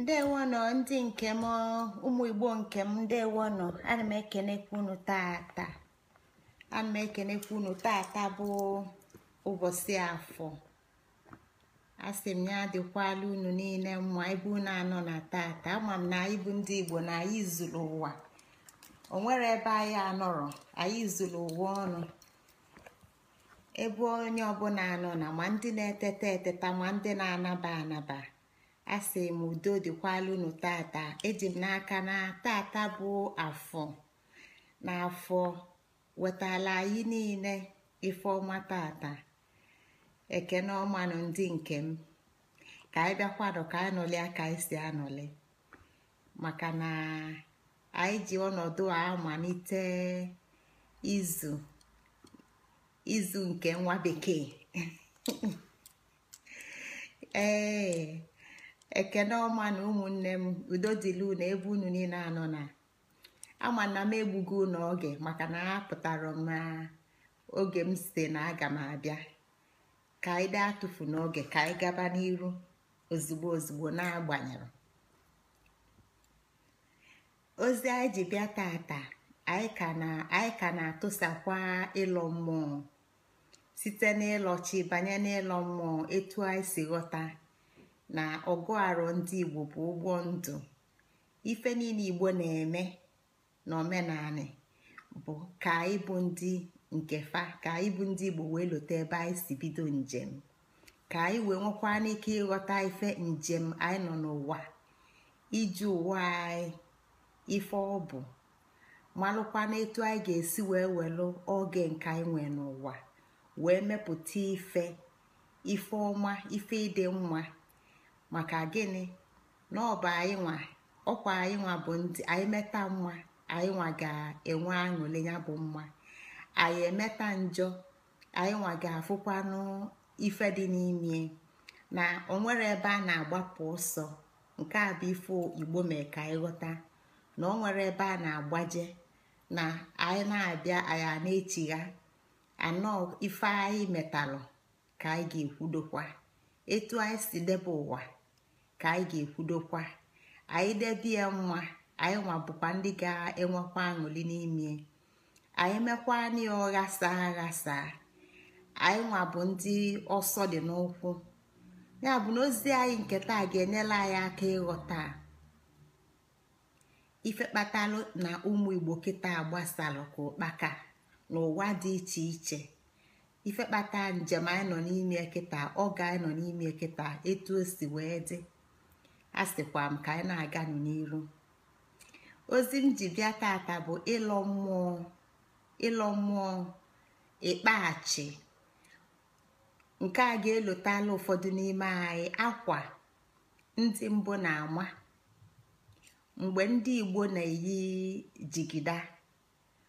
ndewono ndị nke m ụmụ igbo nke m ndewono ana m ekenekwa unu tata ana m ekenekwa unu tata bụ ụbọchị afọ a sị m ya dịkwala unu niile mma ebe unu anọ na tata ama m na anyị bụ ndị igbo na anyị zuru ụwa o nwere ebe anyị anọrọ anyị zuru ụwa ọnụ ebe onye ọbụla anọ na ma ndị na-eteta eteta ma ndị na-anaba anaba asị m udo dịkwala tata eji m n'aka na tata bụ afọ na afọ wetala anyị niile ife ọma tata ekene ọmanụ ndị nke m ka anyị bịakwanụ ka anọli aka esi si anọli maka na anyị ji ọnọdụ a malite izu izu nke nwa bekee ee ekene ọma na ụmụnne m udo dịlu na ebe unu niile anọ na ama na m egbugo unu oge maka na apụtara m na oge m si na aga m abịa ka anyị daa atụfu n'oge ka anyị gaba n'iru ozugbo ozugbo na-agbanyere ozi anyị ji bịa tata anyị ka na-atụsakwa ịlọ mmụọ site n'ịlọchi chi banye n'ịlọ mmụọ etu anyị si ghọta na ọgụ arụ ndị igbo bụ ụgbọ ndụ ife niile igbo na-eme na omenani bụ ka anyị bụ ndị nke fa ka anyị bụ ndị igbo wee lote ebe anyị si bido njem ka anyị wee nwekwa n'ike ịghọta ife njem anyị nọ n'ụwa iji ụwa anyị ife ọ bụ malụkwana etu anyị ga-esi wee welụ oge nke anyị nwee n'ụwa wee mepụta ife ife ọma ife ịdị mma maka gịnị na ọ bụ anyị nwa ọkwa anyị nwa bụ ndị anyị meta nwa anyị nwa ga-enwe aṅụle ya bụ mma anyị emeta njọ anyị nwa ga-afụkwanụ ife dị n'ime na onwere ebe a na-agbapụ ọsọ nke a bụ ife igbo mee ka anyị ghọta na ọ nwere ebe a na-agbaje na anyị na-abịa anyị a na-echigha anọ ife anyị metalụ ka anyị ga-ekwudokwa etu anyị si debe ụwa ka anyị ga-ekwudokwa anyị debe nwa anyị nwa bụkwa ndị ga-enwekwa aṅụli n'ime anyị mekwa ya ọghasa aghasa anyị nwa bụ ndị ọsọ dị n'ụkwụ ya bụ na ozi anyị nke taa ga-enyela anyị aka ịghọta ife kpatalụ na ụmụ igbo kịta gbasalụ ka ụkpaka n'ụwa dị iche iche ife kpata njem anyị nọ n'ime kịta oge anyị nọ n'ime kịta etu o si wee dị a sịkwa m ka anyị na aga n'iru ozi m ji bịa tata bụ ịlọ mmụọ ịlọ mmụọ ịkpaghachi nke a ga-elotala ụfọdụ n'ime anyị akwa ndị mbụ na-ama mgbe ndị igbo na-eyi jigida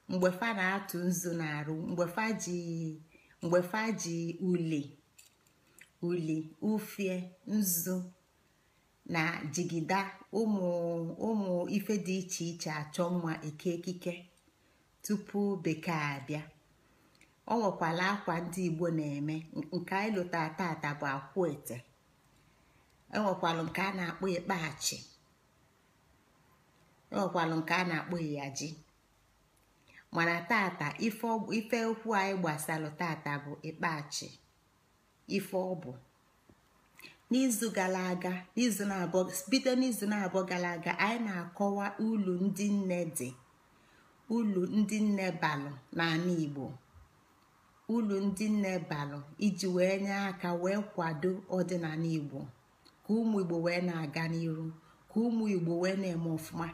mgbe fa na-atụ nzu na-arụ mgbe fa ji mgbe fa ji uli uli ufie nzu na jigida ụmụ ife dị iche iche achọ mma eke ekike tupu bekee abịa ọ nwekwala akwa ndị igbo na-eme nke anyị lụtara tata bụ akwụ ete enwekwalụ nke a na-akpọ ịkpachi enwekwalụ nke a na-akpọ ịyaji mana tata ife okwu anyị gbasalụ tata bụ ikpachi ife ọ bụ. n'izu gara aga n'izu na-abọ bido n'izu na-abọ gara aga anyị na-akọwa ulu ndị nne dị ulu ndị nne balụ n'ala Igbo ulu ndị nne balụ iji wee nye aka wee kwado ọdịnala Igbo ka ụmụ Igbo wee na-aga n'iru ka ụmụ Igbo wee na-eme ọfụma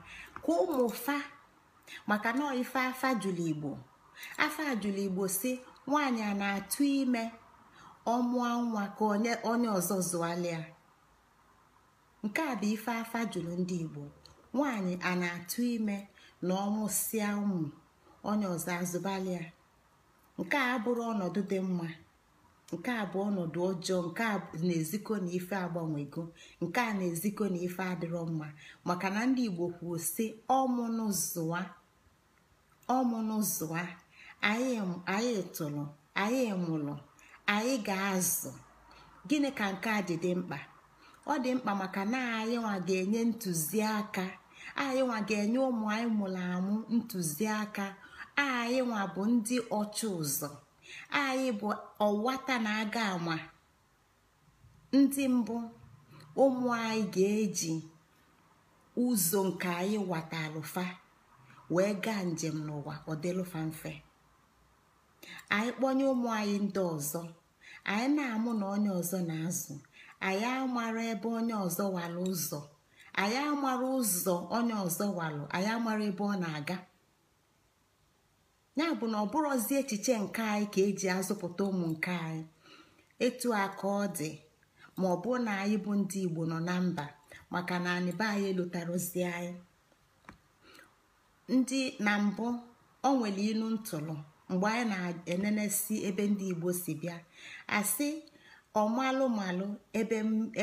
ka ụmụ fa maka na ife afa jụrụ Igbo afa jụrụ Igbo si nwaanyị a na-atụ ime ọ nwa ka onye ọzọ zụalịa nke a bụ ife afa juru ndị igbo Nwanyị a na-atụ ime na ọmụsịa ụmụ onye ọzọ azụbalia nke a abụrụ ọnọdụ dị mma nke a bụ ọnọdụ ọjọọ nke a na-ezikọ na ife agbanwego nke a na-ezikọ na ife adịrọ mma maka na ndị igbo kwuo si ọmụnụ anyị tụrụ anyị mụrụ anyị ga-azụ gịnị ka nke a dị dị mkpa ọ dị mkpa maka na anyị nwa ga-enye ntụziaka anyị nwa ga-enye ụmụ anyị mụrụ amụ ntụziaka anyị nwa bụ ndị ọchụ ụzọ anyị bụ ọwata na-aga ama ndị mbụ ụmụ anyị ga-eji ụzọ nke anyị watalụfa wee gaa njem n'ụwa ọ mfe anyị kpọnye ụmụ anyị ndị ọzọ anyị na-amụ na onye ọzọ na-azụ anyị amara ebe onye ọzọ walụ ụzọ anyị amara ụzọ onye ọzọ walụ anyị amara ebe ọ na-aga ya bụ na ọ bụrụzi echiche nke anyị ka eji azụpụta ụmụ nke anyị etu aka ọ dị ma ọ bụ na anyị bụ ndị igbo nọ na mba maka na anyị be anyị elutarozi anyị ndị na mbụ o nwere ilu ntụrụ mgbe anyị na-enenesi ebe ndị igbo si bịa asị ọmalụmalụ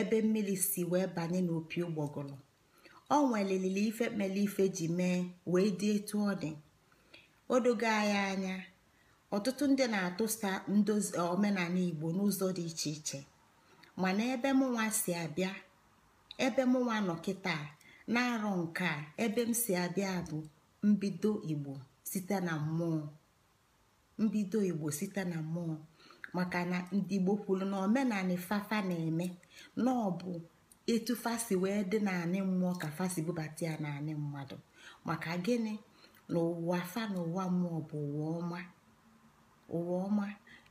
ebe mmiri si wee banye n'opi ụgbọgụrụ o nwelilili ife mere ife ji mee wee dị etu ọ dị odogo anyị anya ọtụtụ ndị na-atụsa ndozi e, omenala igbo n'ụzọ dị iche iche mana ebe mụnwa si abịa ebe mụnwa nọ kịta na-arọ nke a ebe m si abịa bụ mbido igbo site na mmụọ mbido igbo site na mmụọ maka na ndị igbo kwuru na omenani fafa na-eme na ọ bụ etu fasi wee dị naanị mmụọ ka fasi bubata ya naanị mmadụ maka gịnị na ụwa fa na ụwa mmụọ bụ ụwa ọma ụwa ọma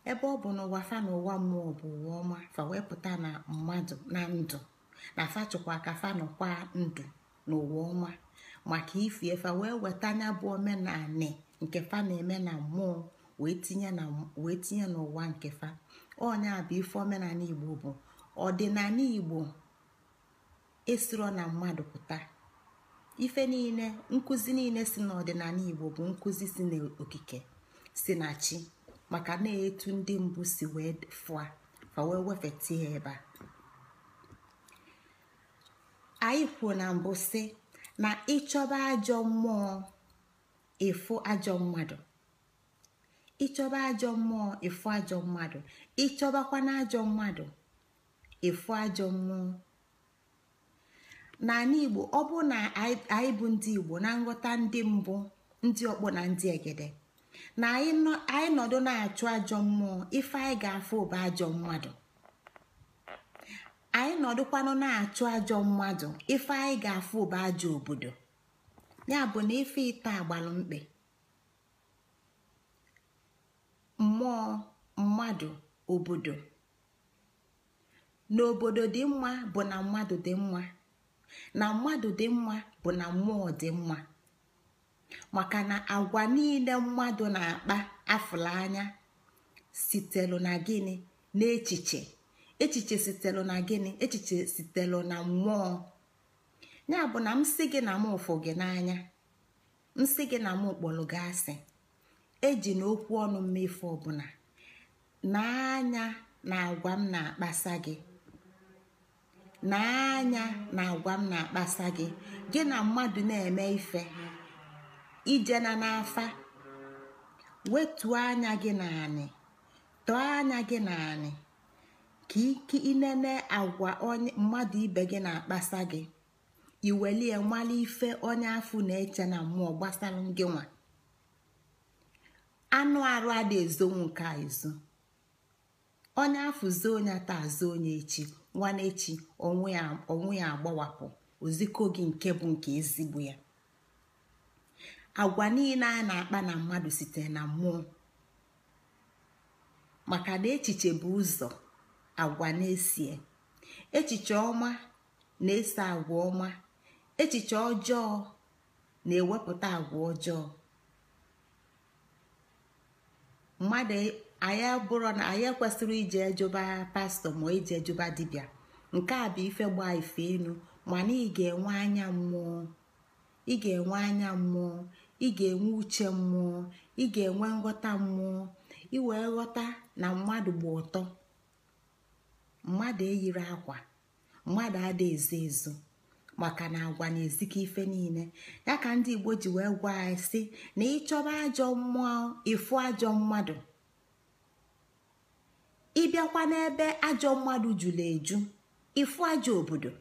ebe ọ bụ na ụwa fa na ụwa mmụọ bụ ụwa ọma fa wee pụta na mmadụ na ndụ na fa ka fa nọkwa ndụ na ụwa ọma maka ifi fa wee weta anya bụ omenani nke fa na-eme na mmụọ wee tinye n'ụwa nke fa a bụ ife omenala igbo bụ ọdịnala igbo esiro na mmadụ pụta ife niile nkụzi niile si n'ọdịnala igbo bụ nkụzi si n'okike si na chi maka na-etu ndị mbụ si wee fụa fa wee wefeta ya ebe a anyị kwuo na mbụ si na ịchọba ajọ mmụọ ịfụ ajọ mmadụ ịchọba ajọ mmụọ efu ajọ mmadụ ịchọbakwa na ajọ mmadụ ajọ mmụọ n'ala igbo ọ bụ na anyị bụ ndị igbo na nghọta ndị mbụ ndị ọkpọ na ndị egede na anyị nọdụ na-achụ ajọ mmụọ ife anyị ga-afụ ụba ajọ mmadụ anyị nọdụkwanụ na-achụ ajọ mmadụ ife anyị ga-afụ ụba ajọ obodo ya bụ na ife ite agbalụ mkpe mmụọ mmadụ obodo n'obodo dị mma bụ na mmadụ dị mma na mmadụ dị mma bụ na mmụọ dị mma maka na agwa niile mmadụ na-akpa afụla anya sitelu na gịnị n'echiche echiche sitelu na gịnị echiche sitelu na mmụọ ya bụ na msị gị na m ụfụ gị n'anya m gị na m kpọrọ gị asị eji na okwu ọnụ mmefu ọbụla na na agwa m na-akpasa gị na na agwa m na-akpasa gị gị na mmadụ na-eme ife ijena n'afa wetuo anya gị naanị tọọ anya gị naanị ka ike inene agwa onye mmadụ ibe gị na-akpasa gị iwelie nwale ife onye afụ na-eche na mmụọ gbasara gị nwa anụ arụ adị ezonwu a ezo onye afụzo onye ata azụ onye echi nwanne echi onwe ya agbawapụ oziko gị nke bụ nke ezigbo ya agwa niile a na-akpa na mmadụ site na mmụọ maka na echiche bụ ụzọ agwa na-esie echiche ọma na ese agwa ọma echiche ọjọọ na-ewepụta agwa ọjọọ mmadụ anya bụrụ na anyị kwesịrị ije ejuba pastọ ma ije ejuba dibia nke a bụ ife gba ife enu mana ị ga-enwe anya mmụọ ị ga-enwe anya mmụọ ị ga-enwe uche mmụọ ị ga-enwe nghọta mmụọ ị wee ghọta na mmadụ gba ụtọ mmadụ eyiri akwa mmadụ adị ezo ezo maka na agwa na-ezikọ ife niile ya ka ndị igbo ji wee gwa anyị si na ịchọba ajọ mmụọ ịfụ ajọ mmadụ ịbịakwa n'ebe ajọ mmadụ jụrụ eju ịfụ ajọ obodo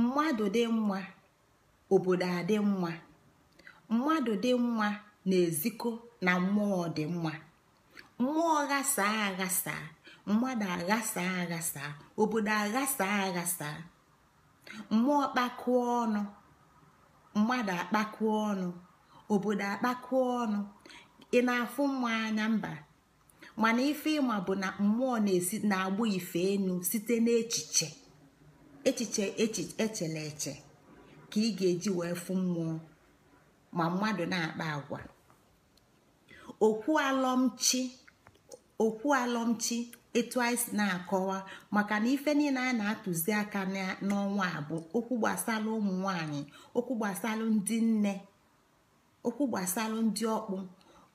mmadụ dị mma obodo adị mma mmadụ dị mma na-ezikọ na mmụọ dị mma mmụọ ghasaa aghasaa mmadụ aghasaa aghasaa obodo aghasa aghasa mmụọ kpakụọ ọnụ mmadụ akpakụọ ọnụ obodo akpakụọ ọnụ ị na-afụ mma anya mba mana ife ịma bụ na mmụọ na-agbụ ife enu site n'echiche echiche echele eche ka ị ga-eji wee fụ mmụọ ma mmadụ na-akpa agwa okwu alọmchi okwu alọmchi etu anyị si na-akọwa maka na ife niile anyị na-atụzi aka n'ọnwa a bụ okwu gbasara ụmụ nwanyị okwu gbasara ndị nne okwu gbasara ndị ọkpụ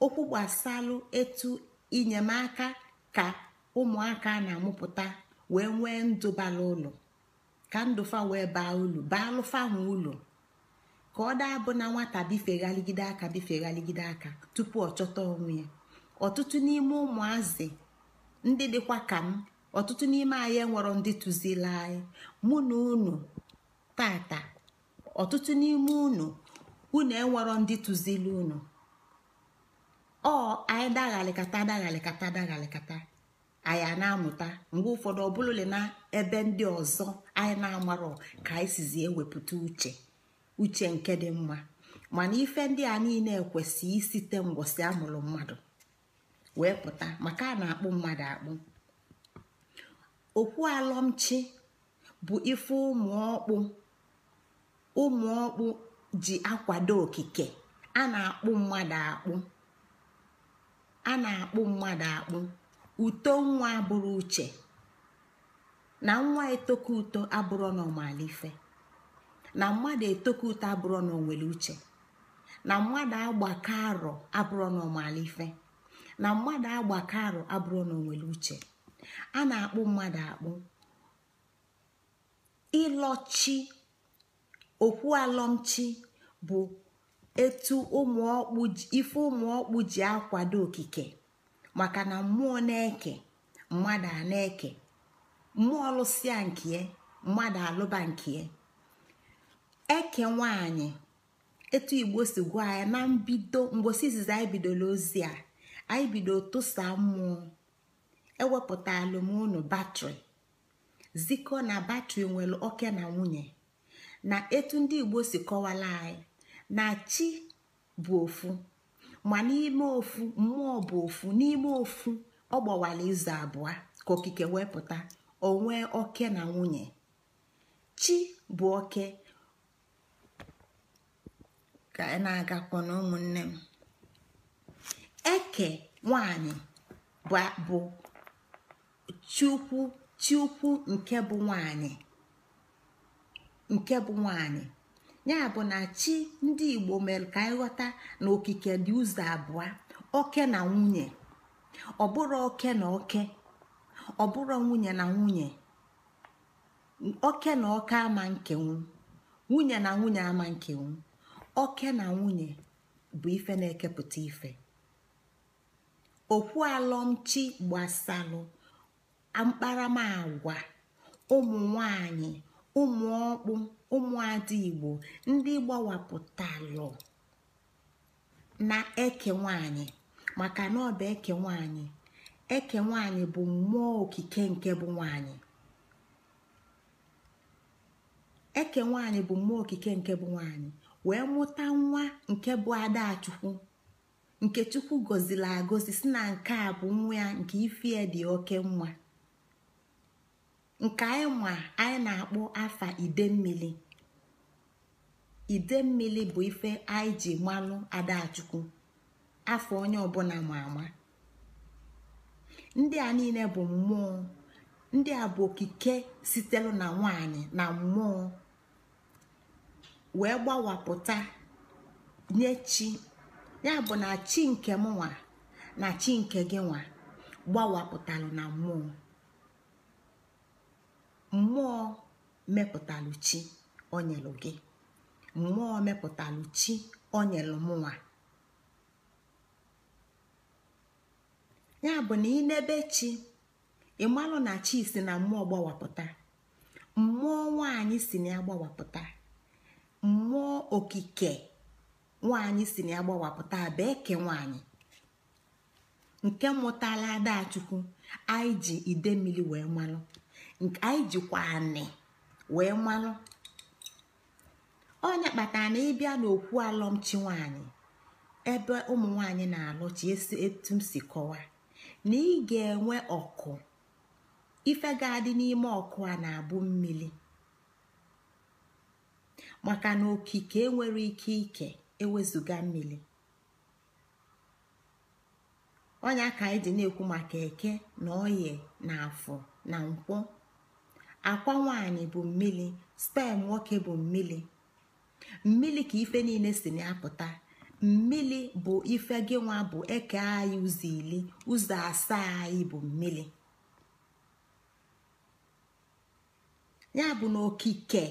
okwu gbasara etu inyemaka ka ụmụaka na-amụpụta wee nwee ndụ bara ụlọ ka ndụfa wee baa ulu baa alụfa ha ụlọ ka ọ daa bụ na nwata bifeghaligide aka bifeghaligide aka tupu ọ chọta onwe ya ọtụtụ n'ime ụmụazị ndị dịkwa ka m ọtụtụ n'ime anyị enwero ndị tụzila anyị mụ na unu tata ọtụtụ n'ime unu unu enwero ndị tụzili unu ọ anyị daghalikata daghalikata daghalikata anyị na-amụta mgbe ụfọdụ ọbụlụle na ebe ndị ọzọ anyị na-amarọ ka anyị sizi ewepụta uche uche nke dị mma mana ife ndị a niile kwesị isite mgbọsị amụrụ mmadụ wee pụta maka a na-akpụ mmadụ akpụ okwu alọmchi bụ ife ụmụ ọkpụ ụmụ ọkpụ ji akwado okike a na-akpụ mmadụ akpụ a na-akpụ mmadụ akpụ uto nwa abụrụ uche na nwa etoku uto abụrụ n'ọmalife na mmadụ etoku uto abụrụ n'onwere uche na mmadụ agbaka arọ abụrụ n'ọmalife na mmadụ agbakọ arụ abụrụ na uche a na-akpụ mmadụ akpụ ịlọchi okwu alọmchi bụ etu ife ụmụọkpụ ji akwado okike maka na mmụọ na-eke mmadụ a na-eke mmụọ lụsịa nke mmadụ alụba nke eke nwanyị etu igbo si gwa ya na mbido mgbosi izizi anyị bidola ozi a anyị bido tụsa mmụọ ewepụta alụmụnụ batrị zikọ na batrị nwere oke na nwunye na etu ndị igbo si kọwala anyị na chi bụ ofu ma n'ime ofu mmụọ bụ ofu n'ime ofu ọ gbawara izu abụọ ka okike wepụta onwe oke na nwunye chi bụ oke ka na-agakwa na ụmụnne m eke nwanyị bụ chiukwu chukwu nke bụ nwanyị nke bụ nwanyị ya bụ na chi ndị igbo mere ka anyị ghọta na okike dị ụzọ abụọ oke na nwunye ọ bụrụ oke na oke ọ bụrụ nwunye na nwunye oke na oke ama nkenwu nwunye na nwunye ama nkenwu oke na nwunye bụ ife na-ekepụta ife alọmchi gbasalụ mkparamagwa ụmụ nwanyị ụmụ ọkpụ ụmụada igbo ndị gbawapụtalụ na eke nwanyị maka na ọ bụ eke nwanyị eke nwanyị bụ mmụọ okike nke bụ nwanyị eke nwanyị bụ mmụọ okike nke bụ nwanyị wee mụta nwa nke bụ adachukwu nke chukwu gọziri agọzi si na nke a bụ nwa ya nke ifie dị oke nwa nke anyị ma anyị na-akpọ afa idemmili idemmili bụ ife anyị ji manụ adachukwu afọ onye ọbụla ma ama ndị a niile bụ mmụọ ndị a bụ okike sitere na nwanyị na mmụọ wee gbawapụta nye chi ya bụ na chi nke m nwa na chi nke gị nwa gbawapụtalụ na mmụọ mmụọ mepụtalụ chi onyelụ gị mmụọ mepụtalụ chi onyelụ m nwa ya bụ na ị ịnebe chi ịmalụ na chi si na mmụọ gbawapụta mmụọ nwanyị si na ya gbawapụta mmụọ okike nwaanyị si na ya gbawapụta abịa eke nwaanyị nke mụtala adachukwu anyị ji ide mmiri wee malụ anyị jikwa anị wee malụ onye kpatara na ịbịa n'okwu alọmchi nwaanyị ebe ụmụ nwaanyị na-alụchi esi etu m si kọwa na ị ga-enwe ọkụ ife n'ime ọkụ a na-abụ mmiri maka na okike enwere ike ike ewezụga mmiri ọnya ka anyị dị na-ekwu maka eke na oye na afọ na nkwọ akwa nwaanyị bụ mmiri spen nwoke bụ mmiri mmiri ka ife niile si na-apụta mmiri bụ ife gị nwa bụ eke anyị ụzọ ili ụzọ asaa anyị bụ mmiri ya bụ na okike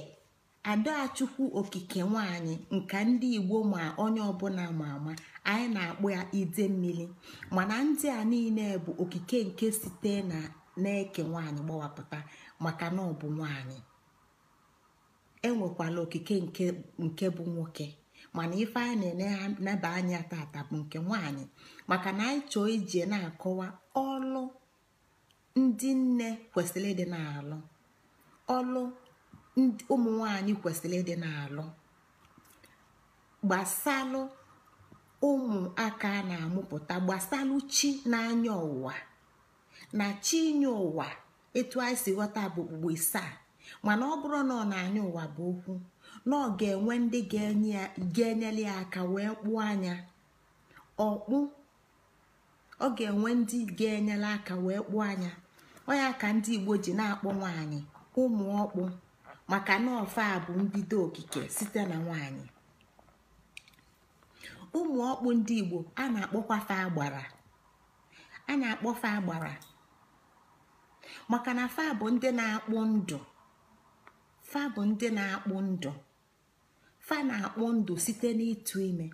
adachukwu okike nwanyị nka ndị igbo ma onye ọbụla ama ama anyị na-akpụ ya ide mmiri mana ndị a niile bụ okike nke site na na-eke nwanyị gbawapụta maka na ọ bụ nwanyị enwekwala okike nke bụ nwoke mana ife anyị na-eneba anya tata bụ nke nwanyị maka na anyị chọọ ije na-akọwa ọlụ ndị nne kwesịrị ịdị na-alụ ọlụ ụmụ nwanyị kwesịrị ịdị na-alụ gbasalụ ụmụaka na-amụpụta gbasalụ chi na n'anya ụwa na chi inye ụwa etu anyị si ghọta bụ okpukpe isaa mana ọ bụrụ na ọ na-anya ụwa bụ okwu na ọ ga-enwe ndị ga-enyere ya aka wee kpụọ anya ọkpụ ọ ga-enwe ndị ga-enyere aka wee kpụọ anya ọ ya ka ndị Igbo ji na-akpọ nwanyị ụmụ ọkpụ maka na ọfa bụ mbido okike site na nwanyị ụmụ ọkpụ ndị igbo a na-akpọkwa fa agbara a na-akpọ fa agbara maka na fa bụ ndị na-akpụ ndụ fa bụ ndị na-akpụ ndụ fa na-akpụ ndụ site n'ịtụ ime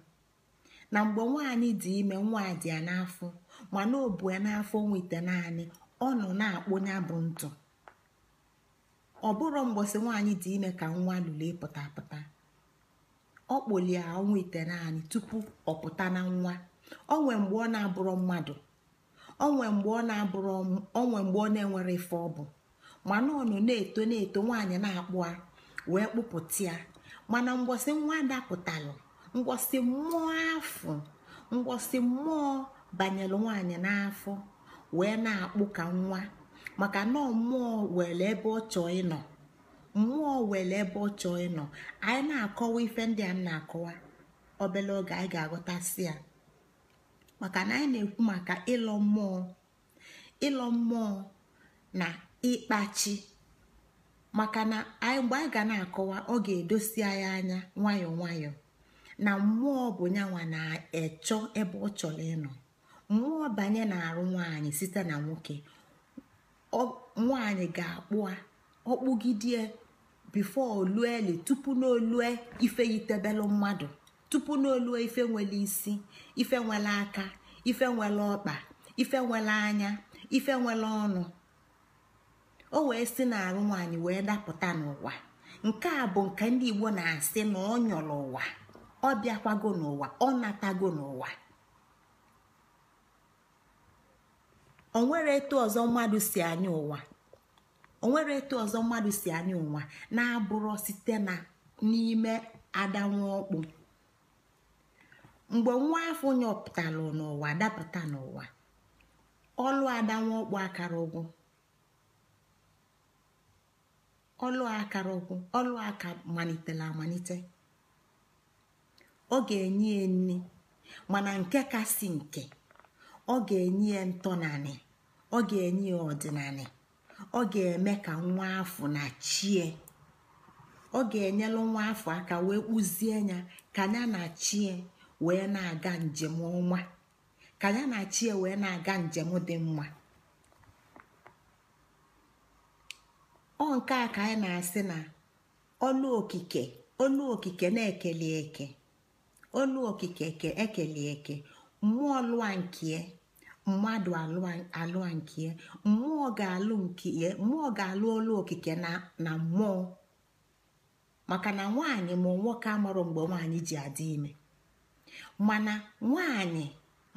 na mgbe nwaanyị dị ime nwa dị ya n'afọ ma o bu ya n'afọ nweta naanị ọ nọ na-akpụ ya bụ ntụ ọ bụrụ mgbọsị nwaanyị dị ime ka nwa lụlee pụtapụta pụta ọ kpolie ọnwa ite naanị tupu ọ pụta na nwa onwe mgbe ọ na abụrọ mmadụ onwe mgbe ọ na-abụrụ onwe mgbe ọ na-enwere ife ọbụ mana ọ nọ na-eto na-eto nwaanyị na-akpụ a wee kpụpụta ya mana mgbọsị nwa dapụtalụ mgbọsị mmụọ afọ mgbọsị mmụọ banyere nwaanyị n'afọ wee na-akpụ ka nwa maka na mmụọ were ebe ọ chọọ ịnọ mmụọ were ebe ọ chọọ ịnọ anyị na-akọwa ife ndị a na-akọwa obele oge anyị ga-aghọtasị ya maka na anyị na-ekwu maka ịlọ mmụọ ịlọ mmụọ na ịkpachi maka na anyị mgbe anyị ga na-akọwa ọ ga-edosi anyị anya nwayọọ nwayọọ na mmụọ bụ nyanwa na-echọ ebe ọ chọrọ ịnọ mmụọ banye na arụ nwaanyị site na nwoke nwaanyị ga-akpụ ọkpụgidie bifo olueli tupu n'olue ife yitebelu mmadụ tupu n'olue ife nwere isi ife nwere aka ife nwere ọkpa ife nwere anya ife nwere ọnụ o wee si n'arụ nwaanyị wee dapụta n'ụwa nke a bụ nke ndị igbo na-asị na ọ nyọrọ ụwa ọ bịakwago n'ụwa ọ natago n'ụwa onwere etu ọzọ mmadụ si anya ụwa na-abụrụ site n'ime adanwụ ọkpụ mgbe nwa afọ nyọpụtalụ n'ụwa dapụta n'ụwa ọlụ adanwụ ọkpụ akara ụgwụ ọlụ akara ọlụ aka malitela amalite ọ ga-enye ya nri mana nke ka si nke ọ ga-enye ya ntọnanị ọ ga-enye ya ọdịnanị ọ ga-eme ka nwa afọ na chie ọ ga-enyelu nwa afọ aka wee kpụzie ya ka ya na chie wee na-aga njem ọnwa ka ya na chie wee na-aga njem dị mma ọ nke a ka anyị na-asị na ọlụ okike olu okike na-ekele eke ọlụ okike eke ekele eke mmụọ lụa nke mmadụ alụ nke ya mmụọ ga-alụ nke mmụọ ga-alụ ọlụ okike na mmụọ maka na nwaanyị ma nwoke amarụ mgbe nwaanyị ji adị ime mana nwaanyị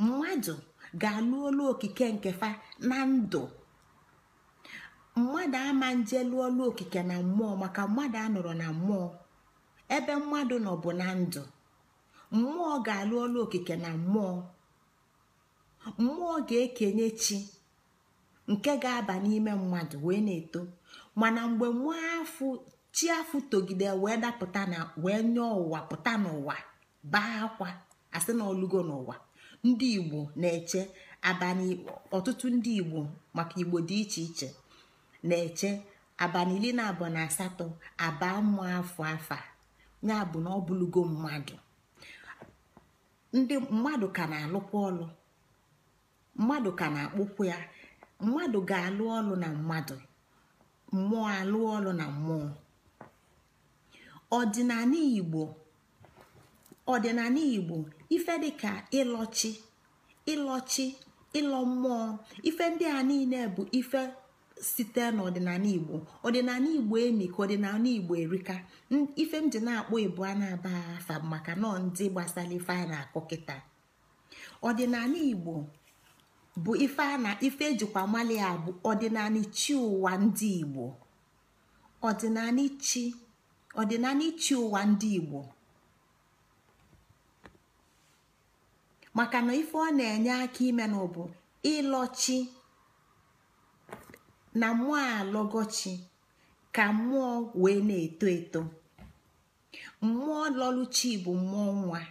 mmadụ ga-alụ olu okike nke fa na ndụ mmadụ ama nje lụọ olu okike na mmụọ maka mmadụ anọrọ na mmụọ ebe mmadụ nọ bụ na ndụ mmụọ ga-alụ olu okike na mmụọ mmụọ ga-ekenye chi nke ga-aba n'ime mmadụ wee na-eto mana mgbe nwa afụ chi afụ togide wee dapụta na wee nye ụwa pụta n'ụwa baa akwa asị na olugo n'ụwa ndị igbo na-eche abalị ọtụtụ ndị igbo maka igbo dị iche iche na-eche Abanili na abụọ na asatọ aba mmụọ afọ afa ya bụ na ọ bụlugo mmadụ ndị mmadụ ka na-alụkwa ọlụ mmadụ ka na-akpụkwu ya mmadụ ga-alụ ọlụ na mmadụ mmụọ alụ ọlụ na mmụọ ọdịnala igbo ọdịnala igbo ife dịka ịlọchi ịlọchi ịlọ mmụọ ife ndị a niile bụ ife site n'ọdịnala igbo ọdịnala igbo emi ka ọdịnala igbo erika ife m ji na-akpọ ibu a na-aba afa maka nọ ndị gbasara ife a na-akụ kịta ọdịnala igbo bụ ife a na ife ejikwa mali a bụ ọdịnala chi ụwa ndị igbo ọdịnala chi ọdịnala ụwa ndị igbo maka na ife ọ na-enye aka ime na bụ ịlọchi na mmụọ alọgọchi ka mmụọ wee na-eto eto mmụọ lọluchi bụ mmụọ nwa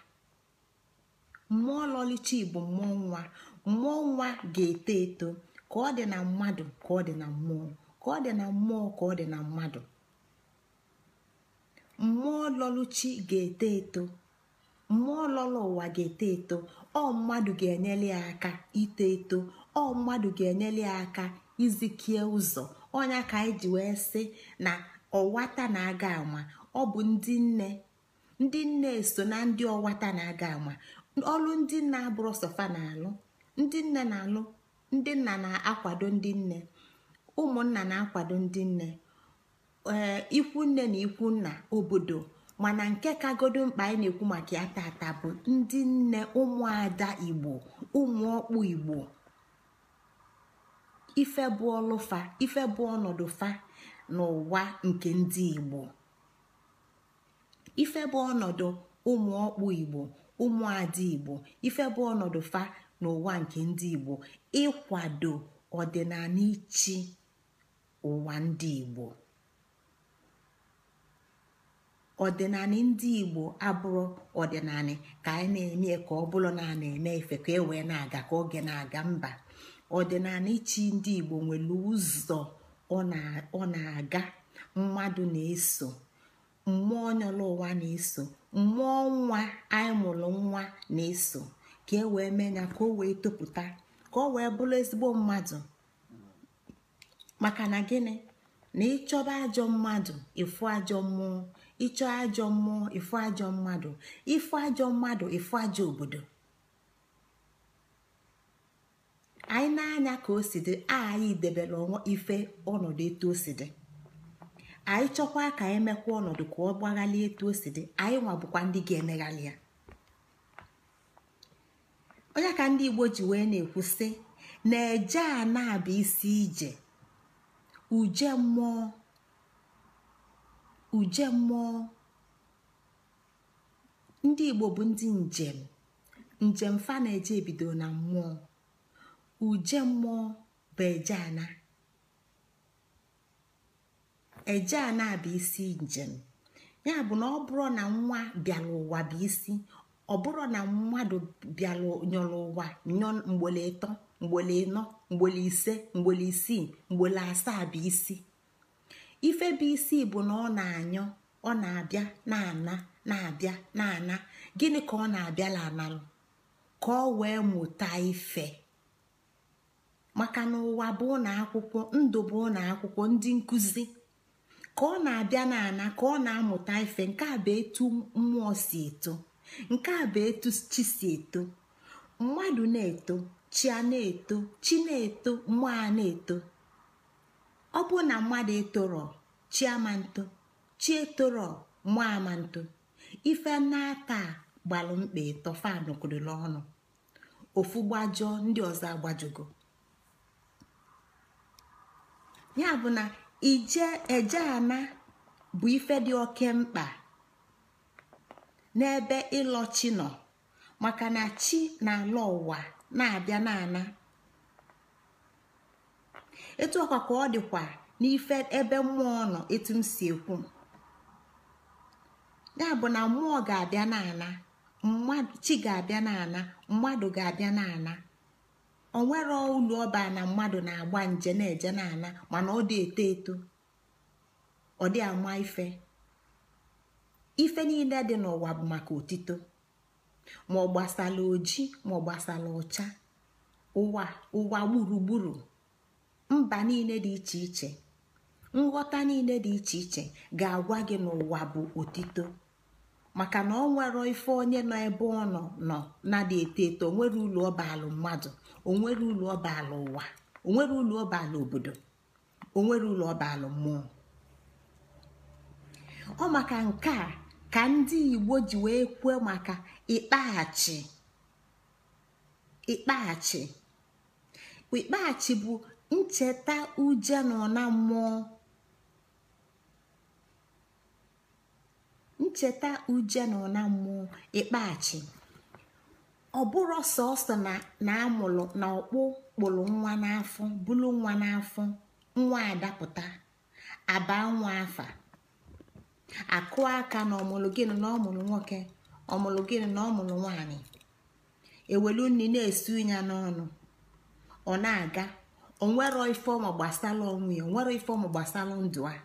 mmụọ lọluchi bụ mmụọ nwa mmụọ nwa ga-eto eto ka ọ dị na mmadụ ka ọ dị na mmụọ ka ọ dị na mmụọ ka ọ dị na mmadụ mmụọ lọlụchi ga-eto eto mmụọ lọlụ ụwa ga-eto eto ọ mmadụ ga-enyere ya aka ito eto ọ mmadụ ga-enyere ya aka izikie ụzọ onye ka anyị ji wee sị na ọwata na-aga ama ọ bụ ndị nne ndị nne so na ndị ọwata na-aga ama ọlụ ndị nna abụrụ sọfa na alụ ndị nne na-alụ ndị nna na-akwado ndị nne ụmụnna na-akwado ndị nne eh, ikwu nne na ikwu nna obodo mana nke kagodo mkpa anyị na-ekwu maka ya tata bụ ndị nne ụmụada igbo ụmụ ọkpụ igbo ife bụ ọlụfa ife bụ ọnọdụ fa n'ụwa nke ndị igbo ife bụ ọnọdụ ụmụ ọkpụ igbo ụmụada igbo ife bụ ọnọdụ fa n'ụwa nke ndị igbo ịkwado ọdịnala ichi ụwa ndị igbo ọdịnala ndị igbo abụrụ ọdịnala ka anyị na-eme ka ọ bụrụ na a na-eme ife ka e wee na-aga ka oge na-aga mba ọdịnala ichi ndị igbo nwere ụzọ ọ na-aga mmadụ na-eso mmụọ ụwa na-eso mmụọ nwa anyị mụrụ nwa na-eso ka e wee mee ya ka o wee topụta ka o wee bụrụ ezigbo mmadụ maka na gịnị na ịchọba ajọ mmadụ ịfụ ajọ mmụọ ịchọ ajọ mmụọ ịfụ ajọ mmadụ ịfụ ajọ mmadụ ịfụ ajọ obodo anyị na-anya ka o si dị anyị debere ọnwa ife ọnọdụ etu o si dị anyị chọkwa ka anyị e mekwa ọnọdụ ka ọ gbaghalie etu o si dị anyị nwa bụkwa ndị ga-emeghalị ya onye ka ndị igbo ji wee na-ekwu na-eje a na isi ije uje mmụọ uje mmụọ ndị igbo bụ ndị njem njem fa na-eje ebido na mmụọ uje mmụọ bụ eje ana eje ana bụ isi njem ya bụ na ọ bụrụ na nwa bịara ụwa bụ isi ọ bụrụ na mmadụ bịara nyọrọ ụwa nyọ mgbele ịtọ mgbele ịnọ mgbele ise mgbele isii mgbele asaa bụ isi ife bụ isi bụ na ọ na-anyọ ọ na-abịa na-ana na-abịa na-ana gịnị ka ọ na-abịala analụ ka ọ wee mụta ife maka na ụwa bụ ụlọ akwụkwọ ndụ bụ ụlọ akwụkwọ ndị nkụzi ka ọ na-abịa na ana ka ọ na-amụta ife nke a bụ etu mmụọ si eto nke a bụ etu chi si eto mmadụ na-eto chi na-eto chi na-eto mmụọ a na-eto ọ bụ na mmadụ etorọ chi amanto chi etorọ mmụọ nto ife n'aka gbalụ mkpa ịtọ fan ọnụ ofu gbajọọ ndị ọzọ agbajugo ya bụ na ije eje ana bụ ife dị oke mkpa n'ebe ịlọchi nọ maka na chi na-ala ụwa na-abịa na-ana etu ọkwa ka ọ dịkwa n'ife ebe mmụọ nọ etu m si ekwu ya bụ na mmụọ ga-abịa n'ana chi ga-abịa na-ana mmadụ ga-abịa n'ana onwere ụlọ ọba na mmadụ na-agba nje na-eje n'ana mana ọ dị eto eto ọ dị ama ife ife niile dị n'ụwa bụ maka otito ma ọ gbasala oji ma ọ gbasala ọcha ụwa ụwa gburugburu mba niile dị iche iche nghọta niile dị iche iche ga-agwa gị n'ụwa bụ otito maka na ọ nwere ife onye nọ ebe ọ nọ nọ na-adị eto eto onwere ụlọ ọbalụ mmadụ onwere ụlọ ọbalụ ụwa onwere ụlọ ọbalụ obodo onwere ụlọ ọbalụ mmụọ ọ maka nke a ka ndị igbo ji wee kwuo maka ịkpaghachi ịkpaghachi ịkpaghachi bụ ncheta uje na ọna mmụọ ncheta uje na mmụọ ịkpaghachi ọ bụrụ sọsọ na amụrụ na ọkpụ kpụrụ nwa n'afọ bụrụ nwa n'afọ nwa adapụta abaa nwa afa akụọ aka na ọmụlụ gịnị na ọmụlụ nwoke ọmụlụ gịnị na ọmụlụ nwanyị ewelu nri na-esu ya n'ọnụ ọ na-aga onwero ifeọmụ gbasara onwe ya onwero ifeọmụ gbasara ndụ a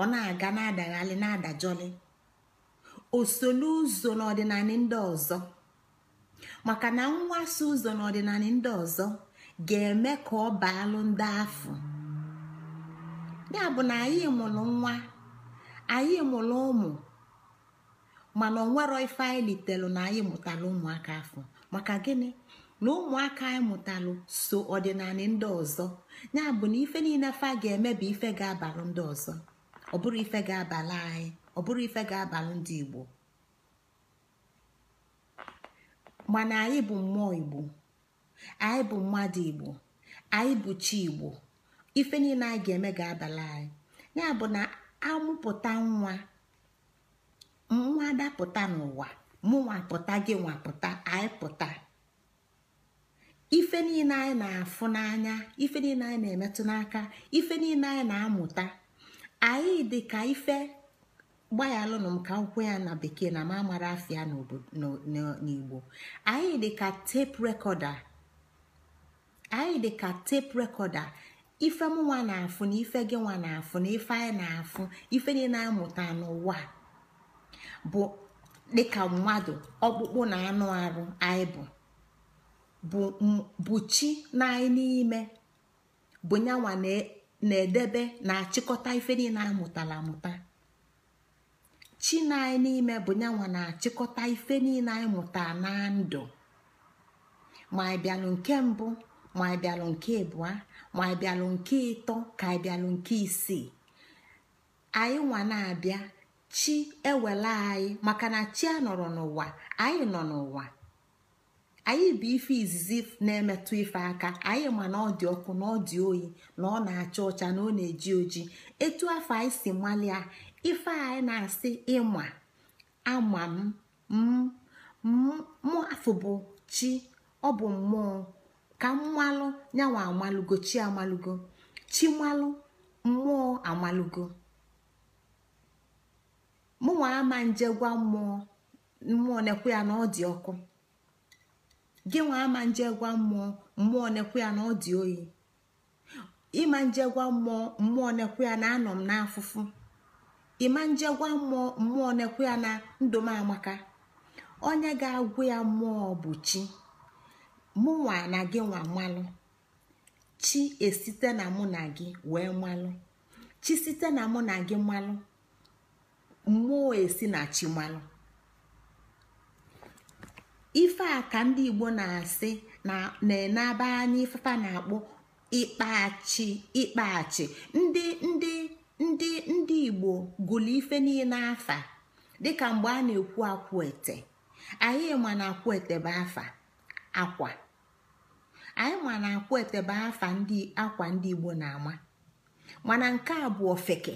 ọ na-aga na-adaghalị na-adajọlị osolu ụzọ n'ọdịnala ndị ọzọ maka na mwaso ụzọ n'ọdịnala ndị ọzọ ga-eme ka ọ baalụ ndị afọ ya bụ na anyị mụrụ nwa anyị mụrụ ụmụ mana onwero ife anyị litelu na anyị mụtara ụmụaka afọ maka gịnị na ụmụaka anyị mụtalụ so ọdịnala ndị ọzọ ya bụ na ife niile fa ga-eme bụ ife ga-abalụ ndị ọzọ ọ bụrụ ife ga-abalụ anyị ọ bụrụ ife ga-abalụ ndị igbo mana anyị bụ mmụọ igbo anyị bụ mmadụ igbo anyị bụ chi igbo ife niile anyị ga-eme ga-abalị anyị ya bụ na amụpụta nwa nwa dapụta n'ụwa mụnwa pụta gị nwa pụta anyị pụta ife niile anyị na-afụ n'anya ife niile anyị na-emetụ n'aka ife niile anyị na-amụta anyị dị ka ife gbayalụnụ m ka akwụkwọ ya na bekee na mamara afịa n'igbo anyị dị ka tape anyị dị ka tape rekọda ife mụnwa na-afụ na ife gị nwa na-afụ na ife anyị na-afụ ife niile na-amụta n'ụwa bụ dịka mmadụ ọkpụkpụ na anụ arụ anyị bụ bụ chi na anyị n'ime bụ nyanwa na-edebe na-achịkọta ife niile amụtara amụta chi na anyị n'ime bụ nyanwa na-achịkọta ife niile anyị mụtara na ndụ ma nke mbụ ma anyị bịalụ nke abụọ ma anyị nke ịtọ ka anyị nke isii anyị nwa na-abịa chi ewela anyị maka na chi anọrọ n'ụwa anyị nọ n'ụwa anyị bụ ife izizi na-emetụ ife aka anyị ma na ọ dị ọkụ na ọ dị oyi na ọ na-acha ọcha na ọ na-eji oji etu afọ anyị si malia ife anyị na-asị ịma ama m m mụ afụ bụ chi ọ bụ mmụọ ka mmalụ nyanwa amalụgo chi amalụgo chimalụ mmụọ amalụgo mụnwa ama nje gwa mmụọ mmụọ nekwe ya na ọ dị ọkụ gị nwa ama nje gwa mmụọ mmụọ nekwe ya na ọ dị oyi ịma nje gwa mmụọ mmụọ nekwe ya na anọ m n'afụfụ ịma nje gwa mmụọ mmụọ nekwe ya na ndụ m amaka onye ga-agwụ ya mmụọ bụ chi mụnwa na gị nwa mmalụ, chi esite na mụ na gị wee malụ chi site na mụ na gị mmalụ, mmụọ esi na chi malụ ife a ka ndị igbo na-asị na-enaba anya ifefa na akpụ ịkpachi ịkpachi ndị ndị ndị ndị igbo gụlụ ife niile afa dịka mgbe a na-ekwu ete. anyị ma na ete bụ afa akwa anyị ma na akwa etebe afa ndị akwa ndị igbo na-ama mana nke a bụ ofeke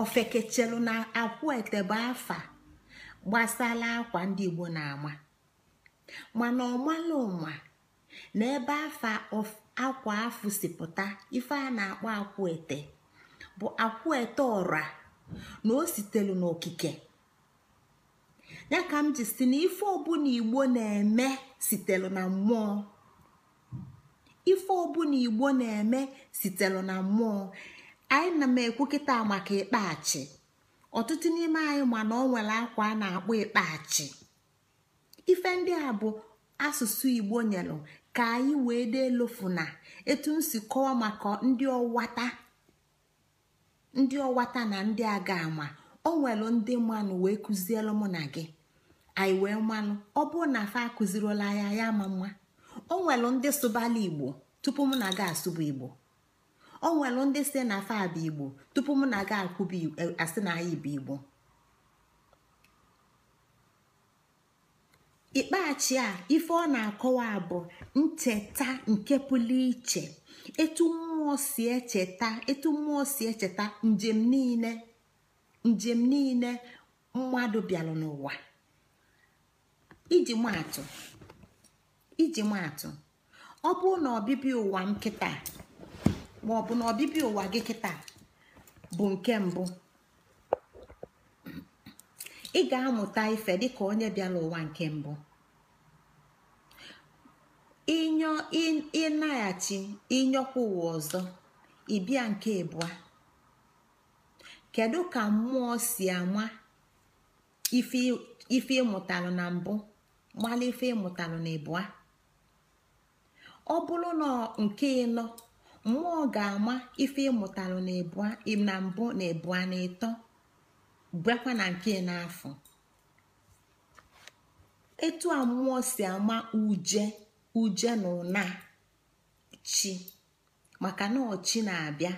ofeke chelụ na akwa etebe afa gbasala akwa ndị igbo na-ama mana ọmala ụma na ebe afa akwa afụ sipụta ife a na-akpọ akwụ ete bụ akwụ ete ọra na o sitelu n'okike ya ka m ji si na ife ọbụla igbo na-eme na mmụọ ife ọbụla igbo na-eme sitelu na mmụọ anyị na m ekwu kịta maka ịkpachi ọtụtụ n'ime anyị mana na ọ nwere akwa a na-akpọ ịkpachi ife ndị a bụ asụsụ igbo nyelụ ka anyị wee dee lofu na etu m si kọwa maka ndị ọwata na ndị aga ama o nwere ndị mmanụ wee kụzielụ mụ na gị anyị wee mmanụ ọ bụrụ na afa akụziriola ya ya ama mma o nwelu ndị sụbala igbo tupu m na aga asụba igbo o nwelu ndị si na afa abụ igbo tupu m na aga akwụba e, asị na ya bụ igbo ikpeachi a ife ọ na-akọwa bụ ncheta nke pụrụ iche etu mmụọ si echeta etu mmụọ si echeta njem niile njem niile mmadụ bịara n'ụwa iji maatụ iji maatụ ọ bụrụ na ọbịbịa ụwa nkịta ma ọ bụ na ọbịbịa ụwa gị kịta bụ nke mbụ ị ga-amụta ife dịka onye bịara ụwa nke mbụ inyo ịnaghachi inyokwa ụwa ọzọ ịbịa nke abụọ kedu ka mmụọ si ama ife ịmụtara na mbụ gbalị ife ịmụtalụ na ịbụa ọ bụrụ na nke ịnọ mmụọ ga-ama ife ịmụtalụ na ịbụa na mbụ na ịbụa na ịtọ bịakwa na nke n'afọ etu a mmụọ si ama uje uje na ụna chi maka na ọchi na-abịa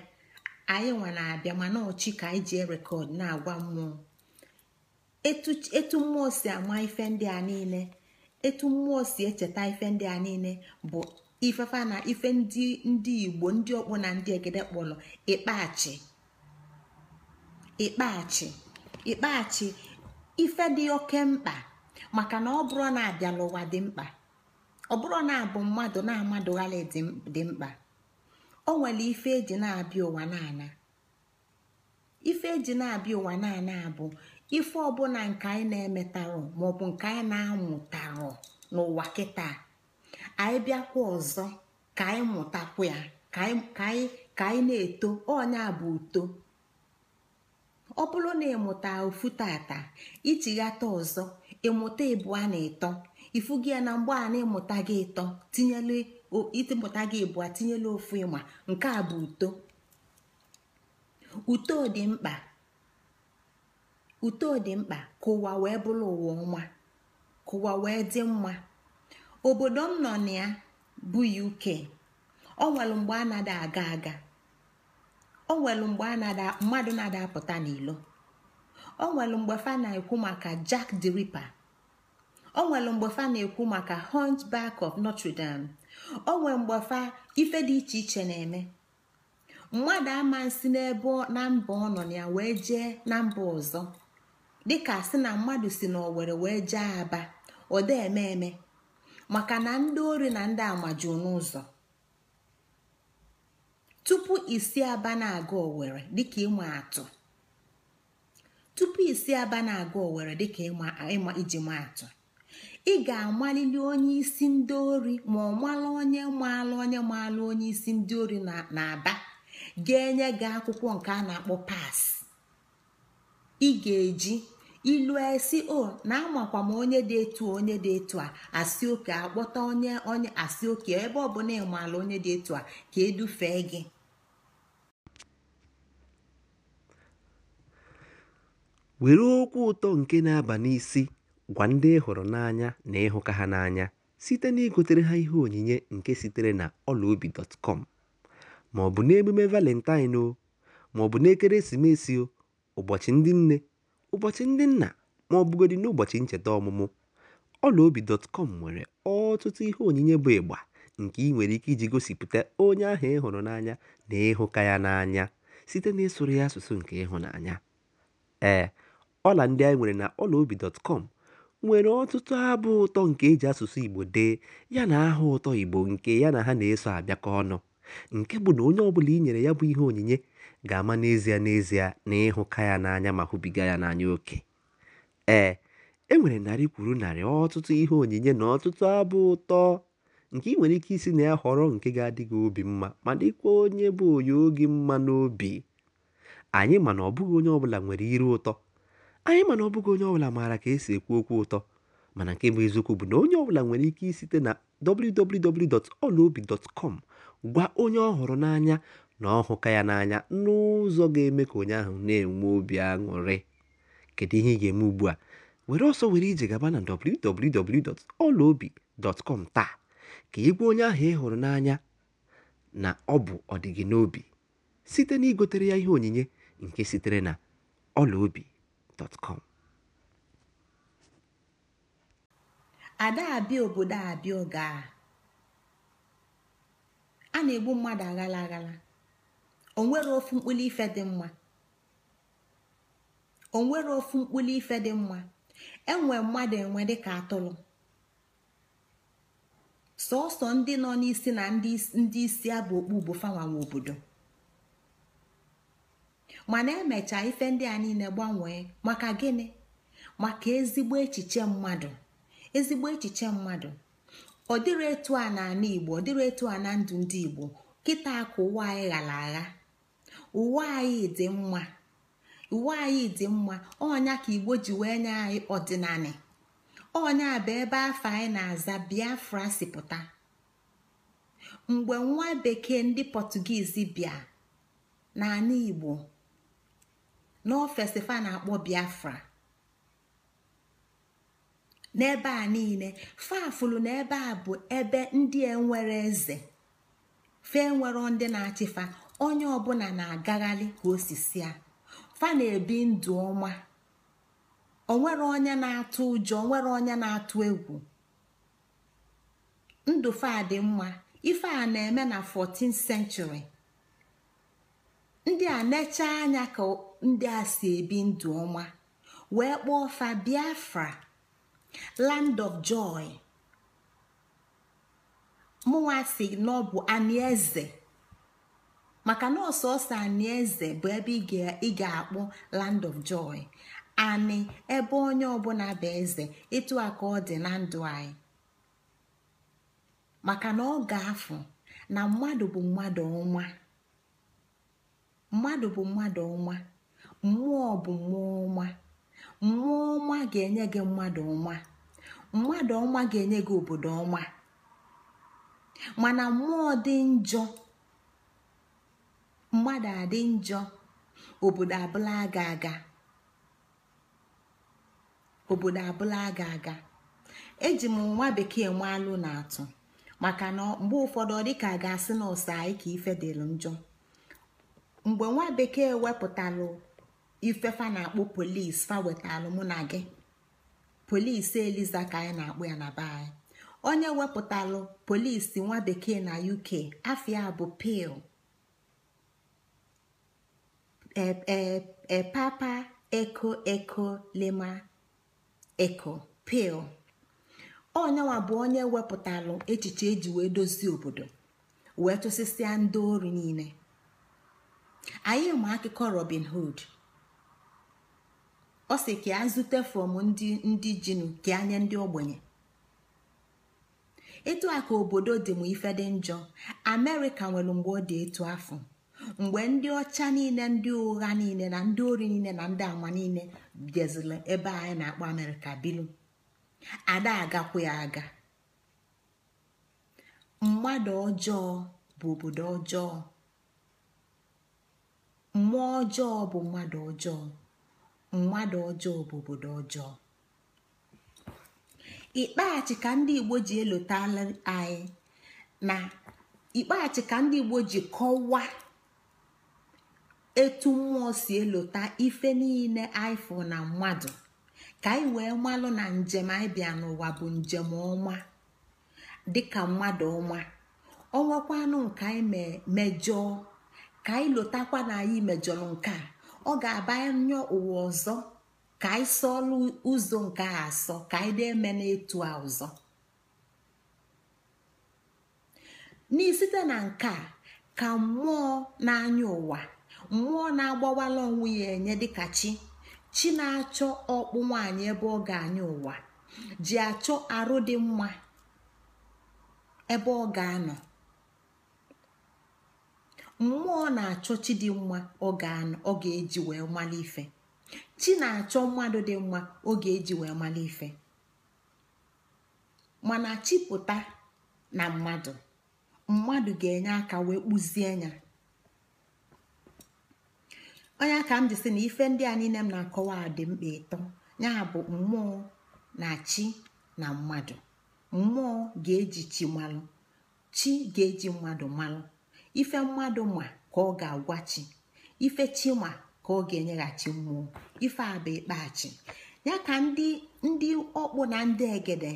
anyị nwa na-abịa na ọchi ka anyị ji rekọd na-agwa mmụọ etu mmụọ si ama ife ndị a niile etu mmụọ si echeta ife ndị a niile bụ ifefa na ife ndị ndị igbo ndị ọkpụ na ndị egede kpọrọ ịkpachi ịkpachi ịkpachi ife dị oke mkpa maka na ọ bụrụ na abịala ụwa dị mkpa ọ bụrụ na abụ mmadụ na amadụghali dị mkpa o nwere ife eji na-abịa ụwa na-ana ife eji na-abịa ụwa na abụ ife ọbụla nke anyị na-emetarọ maọbụ nke anyị na-amụtarọ n'ụwa kịta anyị bịakwa ọzọ ka anyị mụtakwu ya ka anyị ka anyị na-eto ọnya bụ uto ọ bụrụ na ịmụta ofu tata ichighata ọzọ ịmụta ịbụa na ịtọ ifu gị ya na mgbe a na-ịmụta gị ịtọ tinyelu ịmụta gị ịbụa tinyelu ofu ịma nke a bụ uto uto dị mkpa uto dị mkpa ka ụwa wee bụrụ ụwa ọma ka ụwa wee dị mma obodo m nọ na ya bụ uk ọ nwere mgbe a na aga aga ọ nwere mgbe mmadụ na apụta n'ilo ọ nwere mgbe fa na-ekwu maka jack the ripper ọ nwere mgbe fa na-ekwu maka hunchback of notre dame ọ nwere mgbe fa ife dị iche iche na-eme mmadụ ama nsi n'ebe na mba ọ nọ ya wee jee na mba ọzọ dịka sị na mmadụ si na owere wee jee Aba ọda eme eme maka na ndị ori na ndị amaju n'ụzọ tupu isi aba na-aga owere dịka ịma atụ tupu isi aba na-aga owere dịka ịma iji ma atụ ị ga-amalili onye isi ndị ori ma ọ mala onye maalụ onye maalụ onye isi ndị ori na-aba ga-enye gị akwụkwọ nke a na-akpọ pas ị ga-eji ilu esi o na amakwa m onye dị etu onye dị etu a asị oke akpọta onye onye asị oke ebe ọ bụla ịmaala onye dị etu a ka edufe gị were okwu ụtọ nke na-aba n'isi gwa ndị ịhụrụ hụrụ n'anya na ịhụka ha n'anya site na igotere ha ihe onyinye nke sitere na ọlaobi.com maọbụ ọ maọbụ n'emume valentine o maọbụ n'ekeresimesi o ụbọchị ndị nne Ụbọchị Ndị Nna, ma ọ bụgodị n'ụbọchị ncheta ọmụmụ, ọlaobi.com nwere ọtụtụ ihe onyinye bụ ịgba nke ị nwere ike iji gosipụta onye ahụ ị hụrụ n'anya na ịhụka ya n'anya site n'ịsụrụ ya asụsụ nke ịhụnanya. Ee, ọla ndị anyị nwere na ọlaobi.com nwere ọtụtụ abụ ụtọ nke e ji asụsụ Igbo dee yana aha ụtọ Igbo nke ya na ha na-eso abịakọ ọnụ, nke bụ na onye ọbụla i nyere ya bụ ihe onyinye ga-ama n'ezie n'ezie na ịhụka ya n'anya ma hụbiga ya n'anya oke ee e nwere narị kwuru narị ọtụtụ ihe onyinye na ọtụtụ abụ ụtọ nke ị nwere ike isi na ya họrọ nke ga-adị gị obi mma ma dịkwa onye bụ onye oge mma n'obi anyị mana ọbụghị onye ọbụla nwere iru ụtọ anyị mana ọbụghị onye ọbụla maara ka esi ekwu okwu ụtọ mana nke bụ eziokwu bụ na onye ọbụla nwere ike isite na www.olaobi.com gwa onye ọ n'anya na ọ hụka ya n'anya n'ụzọ ga-eme ka onye ahụ na-enwe obi aṅụrị kedu ihe ị ga-eme ugbu a were ọsọ were ije gaba na www.ọlaobi.com taa ka ị gwa onye ahụ ị hụrụ n'anya na ọ bụ ọdịgị n'obi site na igotere ya ihe onyinye nke sitere na ọlaobi.com ada abịa obodo abịa a na-egbu mmadụ aghala aghala onwere ofu mkpụli ife dị mma onwere ofu mkpụli ife dị mma enwe mmadụ enwe dịka atụrụ sọọsọ ndị nọ n'isi na ndị isi abụ okpu bụ fanwanwe obodo mana emecha ife ndị a niile gbanwee maka gịnị maka ezigbo echiche mmadụ ezigbo echiche mmadụ ọ dịrị etu a na igbo ọ dịrị etu a na ndụ ndị igbo kịta akụ ụwa anyị ghara agha uwe anyị dị mma uwe dị mma ọnya ka igbo ji wee nye anyị ọdịnanị ọnya bụ ebe afọ anyị na-aza biafra si pụta mgbe nwa bekee ndị pọtugizi bịa n'ala igbo n'ofesifa na-akpọ biafra n'ebe a niile fafulu na ebe a bụ ebe ndị enwere eze fe nwere ndị na-achịfa onye ọbụla na-agagharị ka osisi a fa na-ebi ndụ ọma onwere onye na-atụ ụjọ nwere onye na-atụ egwu ndụ fa dị mma ife a na-eme na 14th century ndị a necha anya ka ndị a si ebi ndụ ọma wee kpọọ fa Biafra land of joy mụnwa si na ọ bụ anieze maka na ọsọ ọsọ ani eze bụ ebe ị ga-akpọ land of joy ani ebe onye ọbụla bụ eze ịtụ aka ọ dị na ndụ anyị maka na ọ ga-afụ na mmadụ bụ mmadụ ọnwa mmadụ bụ mmadụ ọnwa mmụọ bụ mmụọ ọma, mmụọ ọma ga-enye gị mmadụ ọma, mmadụ ọma ga-enye gị obodo ọma, mana mmụọ dị njọ mmadụ adị njọ obodo abụla aga aga obodo abụla aga aga eji m nwa bekee alụ na atụ maka na mgbe ụfọdụ ọ dịka a ga-asị na ọsa anyị ka ife njọ mgbe nwa bekee wepụtalụ fa na-akpọ polis fa wetalụ mụ na gị polis eliza ka anyị na akpụ ya na be anyị onye wepụtalụ polisi nwa bekee na uk afia bụ pil epapa eko eko lema eko pil onyenwa bụ onye wepụtalụ echiche eji wee dozie obodo wee tụsịsịa ndị ori niile anyị ma akụkọ robin hood ọ sị ka a zute ndị ndị jinu ka anya ndị ogbenye etu a ka obodo dị m ife dị njọ amerịka nwere mgbe ọ dị etu afọ mgbe ndị ọcha niile ndị ụgha niile na ndị ori niile na ndị ama niile biazila ebe anyị na-akpọ amerịka bilu ada agakwa ya aga mmadụ ọjọọ bụ obodo ọjọọ mmụọ ọjọọ bụ mmadụ ọjọọ mmadụ ọjọọ bụ obodo ọjọọ ikpeachi ka ndị igbo ji elotala anyị na ikpeachi ka ndị igbo ji kọwaa etu mmụọ si elota ife niile aifụ na mmadụ ka anyị wee malụ na njem anyị bịa n'ụwa bụ njem ọma dịka mmadụ ọma ọnwakwanụ nke anyị mejọọ ka anyị lotakwa na anyị mejọrọ nke a ọ ga-abanye ụwa ọzọ ka anyị sọọlụ ụzọ nke a asọ ka anyị na-eme n'etu a ọzọ n'isite na nke a ka mmụọ n'anya ụwa mmụọ na-agbawala onwe ya enye dịka chi chi na-achọ ọkpụ nwaanyị ebe ọ ga-anya ụwa ji achọ arụ dị mma ebe ọ ga-anọ mmụọ na-achọ chi dị mma ọ ga eji wee mmalị ife chi na-achọ mmadụ dị mma ọ ga-eji wee mmalị ife mana chipụta na mmadụ mmadụ ga-enye aka wee kpụzie ya. onye ka m jisi si na ife ndị a niile m na-akọwa dị mkpa ịtọ ya bụ mmụọ na chi na mmadụ mmụọ ga-eji chi malụ chi ga-eji mmadụ malụ ife mmadụ ma ka ọ ga-agwa chi ife chi ma ka ọ ga-enyeghachi mmụọ ife a bụ ikpeachi ya ka ndị ọkpụ na ndị egede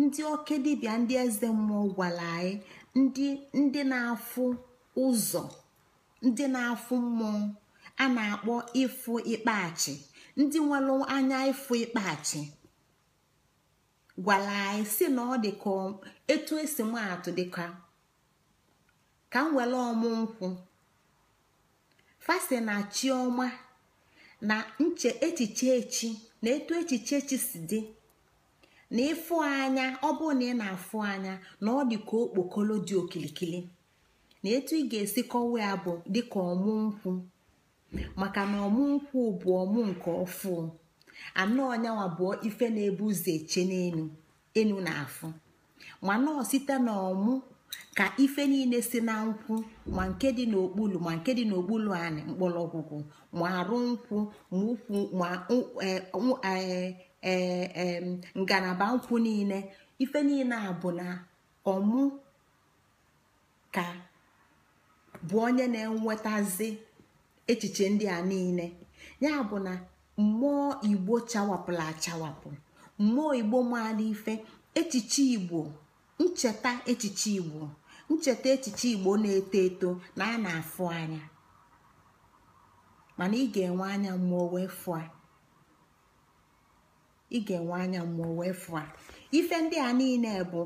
ndị oke dibịa ndị eze mmụọ gwara anyị na-afụ ụzọ ndị na-afụ mmụọ a na-akpọ ịfụ ikpeachi ndị nwere anya ịfụ ịkpachi gwara anyị si na ọ dịka etu esi m atụ dịka ka m were ọmụ nkwụ fasi na chioma na nche echiche echi na etu echiche echi si dị na ịfụ anya ọ bụ na ị na-afụ anya na ọ dị ka okpokolo dị okilikili na etu ị ga-esi kọwa ya bụ dịka ọmụ nkwụ maka na nkwụ bụ ọmụ nke ọfụ anọ nyawa bụ ife na-ebu ụzọ eche n'elu enu na afụ ma nọọ site na ọmụ ka ife niile si na nkwụ ma nke dị n'okpulu ma nke dị n'okpulu anị mkpọrọgwụgwụ ma arụ nkwụ ma ukwu ma e, e, e, ngalaba nkwụ niile ife niile a ọmụ ka bụ onye na-enwetazi echiche ndị a niile ya bụ na mmụọ igbo chawapụla achawapụ mmụọ igbo maala ife echiche igbo ncheta echiche igbo ncheta echiche igbo na-eto eto na a na-afụ anya mana ị ga-enwe anya mmụọ wee fụa ị ga-enwe anya mmụọ wee fụa ife ndị a niile bụ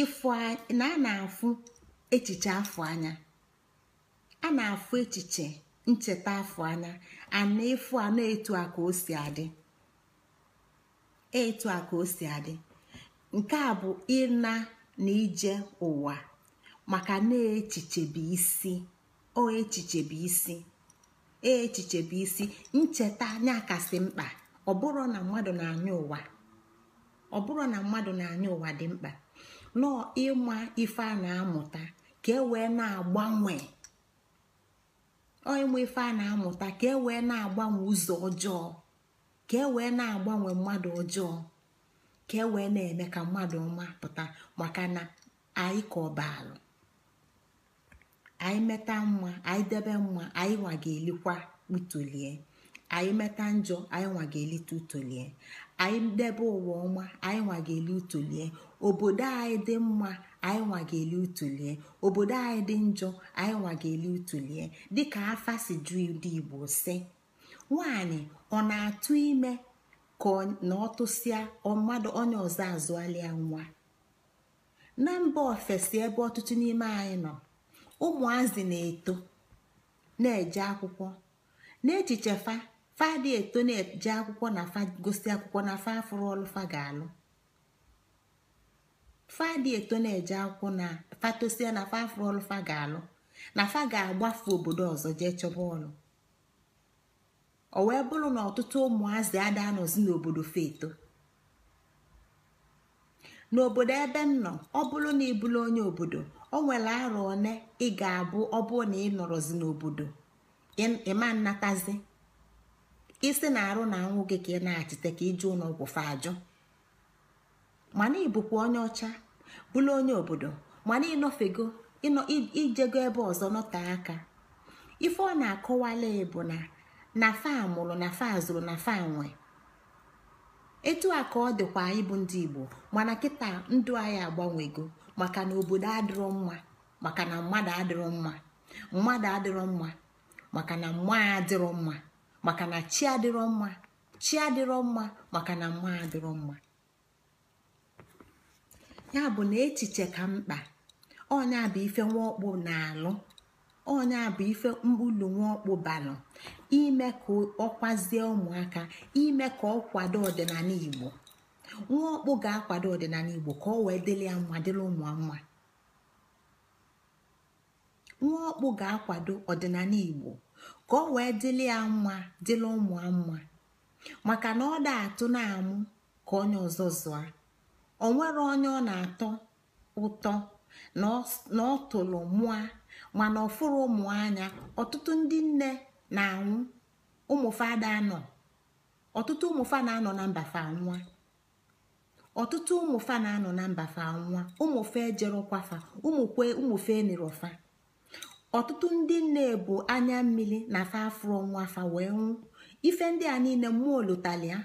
ịfụ na a na-afụ echiche afọ anya a na-afụ echiche ncheta afọ anya ana efu a na-etu a ka o si adị etu a ka o si adị nke a bụ ịna na ije ụwa maka na bụ isi o echichebi isi e, isi ncheta anya kasị mkpa ọ bụrụ na mmadụ na-anya ụwa ọ bụrụ na mmadụ na-anya ụwa dị mkpa nọọ ịma ife a na-amụta ka e wee na-agbanwe ịmụ ife a na-amụta ka e wee na-agbanwe ụzọ ọjọọ ka e wee na-agbanwe mmadụ ọjọọ ka e wee na-eme ka mmadụ ọma pụta maka na anyị ka ọbaalụ anyị meta mma anyị debe mma anyị nwa ga-elikwa utolie anyị meta njọ anyị nwa ga-elite utolie anyị debe ụwa ọma anyị nwa ga-eli utolie obodo anyị dị mma anyị nwa ga-eli obodo anyị dị njọ anyị nwa ga-eli utulie dịka afa si ju ndị igbo si nwaanyị ọ na-atụ ime ka na ọ tụsịa mmadụ onye ọzọ azụalịa nwa na mba ofesi ebe ọtụtụ n'ime anyị nọ ụmụazị na-eto na-eje akwụkwọ n'echiche fa fa dị eto na-eje akwụkwọ na fa gosi akwụkwọ na fa afụrụ ọlụfa ga-alụ fadị eto na-eje akwụkwọ na fatosie na fafrọlụ fa ga-alụ na fa ga-agbafu obodo ọzọ jee chọba ọlụ o wee bụrụ na ọtụtụ ụmụazị ada anọzi n'obodo feto n'obodo ebe m nọ ọ bụrụ na ị onye obodo o nwere arọ one ị ga-abụ ọ na ị nọrọzi n'obodo ịma nnatazi isi na arụ na anwụ gị ka ị na-achịte ka ụlọ ụlọọgwụ fa ajọ mana ịbụkwa onye ọcha bụrụ onye obodo mana ịnọfego ijego ebe ọzọ nọte aka ife ọ na-akọwala bụ na na fa mụrụ na fa zụrụ na faa nwe etu a ka ọ dịkwa ịbụ ndị igbo mana kịta ndụ anyị agbanwego maka na obodo adịrọ mma maka na mmadụ adịrọ mma mmadụ adịrọ mma maka na mma adịrọ mma maka na chi adịrọ mma chi adịrọ mma maka na mma adịrọ mma ya bụ na echiche ka mkpa ọnya bụ ife nwaọkpụ na-alụ ọnya bụ ife ulu nwaọkpụ balụ ime ka ọkwazie ụmụaka ime ka ọ kwado ọdịnala igbo nwaọkpụ ga-akwado ọdịnala igbo ka ọ wee dịrị ya mma dịrị ụmụ mma nwaọkpụ ga-akwado ọdịnala igbo ka ọ wee dịrị ya mma dịrị ụmụ mma maka na ọ da atụ na-amụ ka onye ọzọ zụa o nwere onye ọ na-atọ ụtọ na ọ tụrụ mụa mana ọfụrụ ụmụ anya ọtụtụ ndị nne na-anwụ ụmụfada anọ ọtụtụ ụmụfa na-anọ na mbafa nwa ọtụtụ ụmụfa na-anọ na mbafa nwa ụmụfe ejerokwafa ụmụkwe ụmụfe enirọfa ọtụtụ ndị nne bụ anya mmiri na fa afụrụ nwa fa wee nwụ ife ndị a niile mmụọ lotalia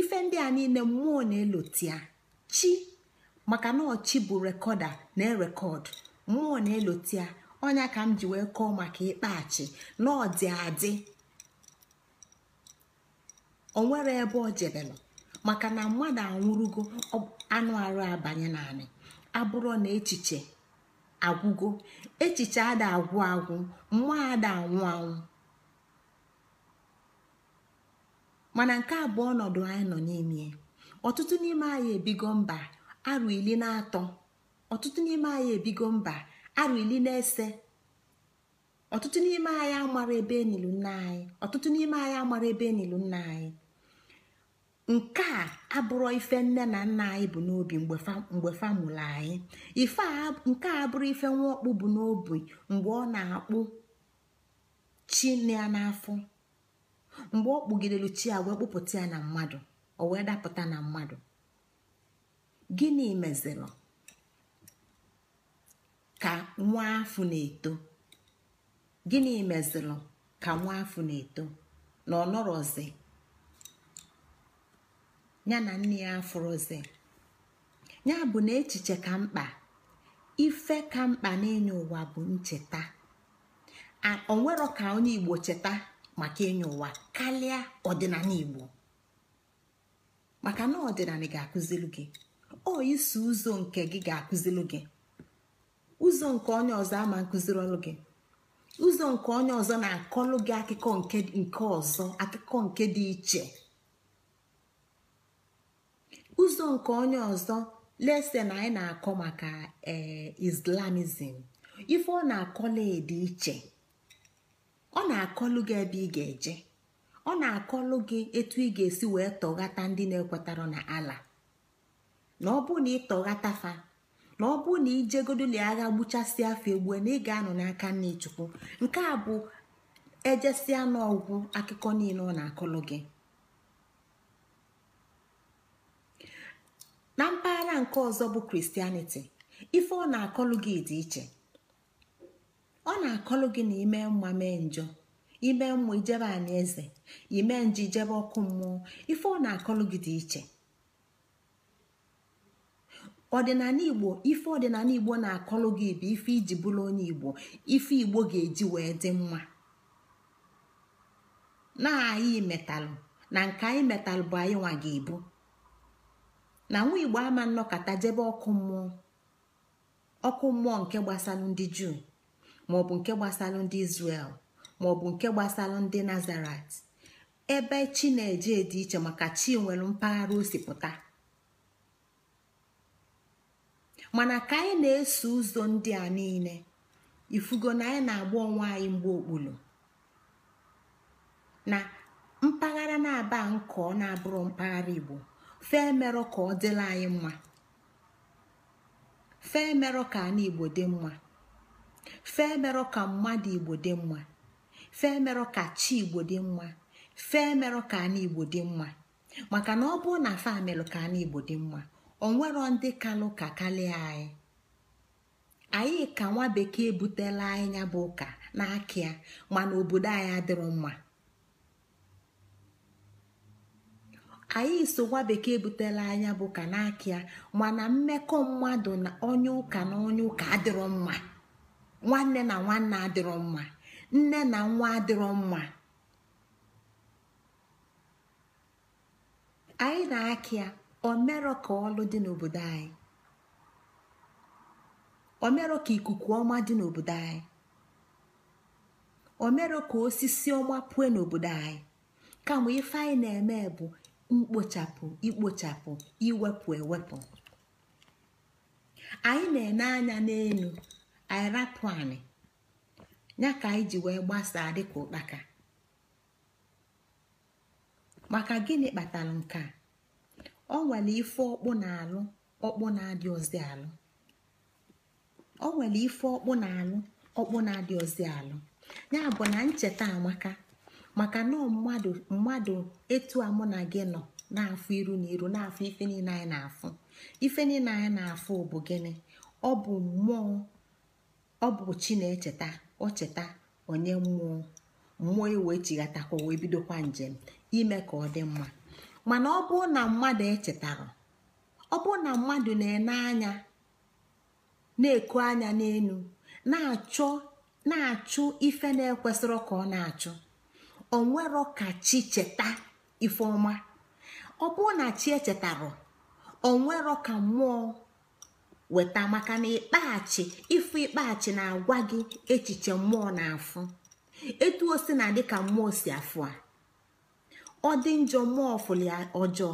ife ndị a niile mmụọ na-elotia chi maka na chi bụ rekọda na erekọdụ mmụọ na eloti ya ọnya ka m ji wee kọọ maka ịkpachi na ọdị adị onwere ebe ọ jebelụ maka na mmadụ anwụrụgo anụ arụ abanye naanị abụrụ na echiche agwụgo echiche ada agwụ agwụ mmụọ ada anwụ anwụ mana nke abụọ anyị nọ n'ime ọtụtụ n'ime anyị ebigo mba arụ ili na atọ ọtụtụ n'ime anyị ebigo mba arụ ili na ese ọtụtụ n'ime anyị amara ebe enilu nna anyị ọtụtụ n'ime anyị amara ebe enilu nna anyị nke a abụrụ ife nne na nna anyị bụ n'obi mgbe fa mụrụ anyị ife nke a abụrụ ife nwa ọkpụ bụ n'obi mgbe ọ na-akpụ chi ya n'afọ mgbe ọ kpụgidelu chi a wee kpụpụta ya na mmadụ o wee dapụta na mmadụ gịnị mezirụ ka nwa afọ na-eto gịnị mezirụ ka nwa afọ na-eto na ọnọrọzi ya na nne ya afụrụzi ya bụ na echiche ka mkpa ife ka mkpa n'enye ụwa bụ ncheta onwero ka onye igbo cheta maka enye ụwa karịa ọdịnala igbo maka na ọdịnala ga-akụziri gị ọ isi ụzọ nke gị ga-akụziri gị ụzọ nke onye ọzọ ama nkụziri ọlụ gị ụzọ nke onye ọzọ na-akọlụ gị akụkọ nke ọzọ akụkọ nke dị iche ụzọ nke onye ọzọ na anyị na-akọ maka eh, islamism ife ọ na-akọla dị iche ọ na-akọlụ gị ebe ị ga-eje ọ na-akọlụ gị etu ị ga-esi wee tọghata ndị na-ekwetara na ala na ọ bụ na ị tọghata fa na ọ bụ na ijegodoli agha gbuchasị afọ egbue na ị ga-anọ n'aka nne chukwu nke a bụ ejesia n'ọgwụ akụkọ niile ọ na-akọlụ gị na mpaghara nke ọzọ bụ kristianiti ife ọ na-akọlụ gị dị iche ọ na-akọlụ gị na ime mma mee njọ ime mmụọ ijebe anyị eze ime nje ijebe ọkụ mmụọ ife ọ na-akọlụ gị dị iche ọdịnala igbo ife ọdịnala igbo na-akọlụ gị bụ ife iji bụrụ onye igbo ife igbo ga-eji wee dị mma na anyị metalụ na nke anyị metalụ bụ anyị nwa ga ebu na nwa igbo ama nnọkọta jebe ọkụ mmụọ ọkụ mmụọ nke gbasalụ ndị juu maọbụ nke gbasalụ ndị izrel maọbụ nke gbasara ndị nazaret ebe chi na-eje dị iche maka chi nwere mpaghara osipụta mana ka anyị na-eso ụzọ ndị a niile ifugo na anyị na-agba onwe anyị mgbe okpulu na mpaghara na-aba ọ na-abụrụ mpaghara igbo fee merọ ka ọ dịla anyị mma fee merọ ka ana igbo dị mma fee ka mmadụ igbo dị mma fee merụ ka chi igbo dị mma fee merụ ka anyị igbo dị mma maka na ọ bụrụ na fa merụ ka anyị igbo dị mma o nwero ndị kalụ ka kalịa anyị anyị ka nwa bekee butela anyị ya bụ ụka n'aka mana obodo anyị adịrọ mma anyị so nwa bekee butela anya bụ ụka n'aka ya mana mmekọ mmadụ na ụka na onye ụka adịrọ mma nwanne na nwanne adịrọ mma nne na nwa adịrọ mma anyị na-akị ya omerọ ka ọlụ dị n'obodo anyị omerọ ka ikuku ọma dị n'obodo anyị omerọ ka osisi ọma puo n'obodo anyị kama ife anyị na-eme bụ mkpochapụ ikpochapụ iwepụ ewepụ anyị na-ene anya n'elu anyị anyị ya ka anyị ji wee gbasaa dịka ụkpaka maka gịnị kpatara nke a ọ nwere ife ọkpụ na-alụ ọkpụ na-adị ozi alụ ọ nwere ife ọkpụ na-alụ ọkpụ na-adị ozi alụ ya bụ na ncheta amaka maka na mmadụ mmadụ etu a mụ na gị nọ na-afụ iru na iru na-afụ ife niile anyị na-afụ ife niile anyị na-afụ bụ gịnị ọ bụ mmụọ ọ bụ chi na-echeta o cheta onye mmụọ mmụọ iwe e chighatakwa wee bidokwa njem ime ka ọ dị mma mana ọ bụrụ na mmadụ echetara ọ bụrụ na mmadụ na-ene anya na-eku anya n'elu na-achọ na-achụ ife na-ekwesịrị ka ọ na-achụ onwero ka chi cheta ife ọma ọ bụrụ na chi echetara onwero ka mmụọ weta maka na ịkpaghachi ịfụ ịkpaghachi na-agwa gị echiche mmụọ na-afụ etu o si na dịka mmụọ si afụ a ọ dị njọ mmụọ fụli ọjọọ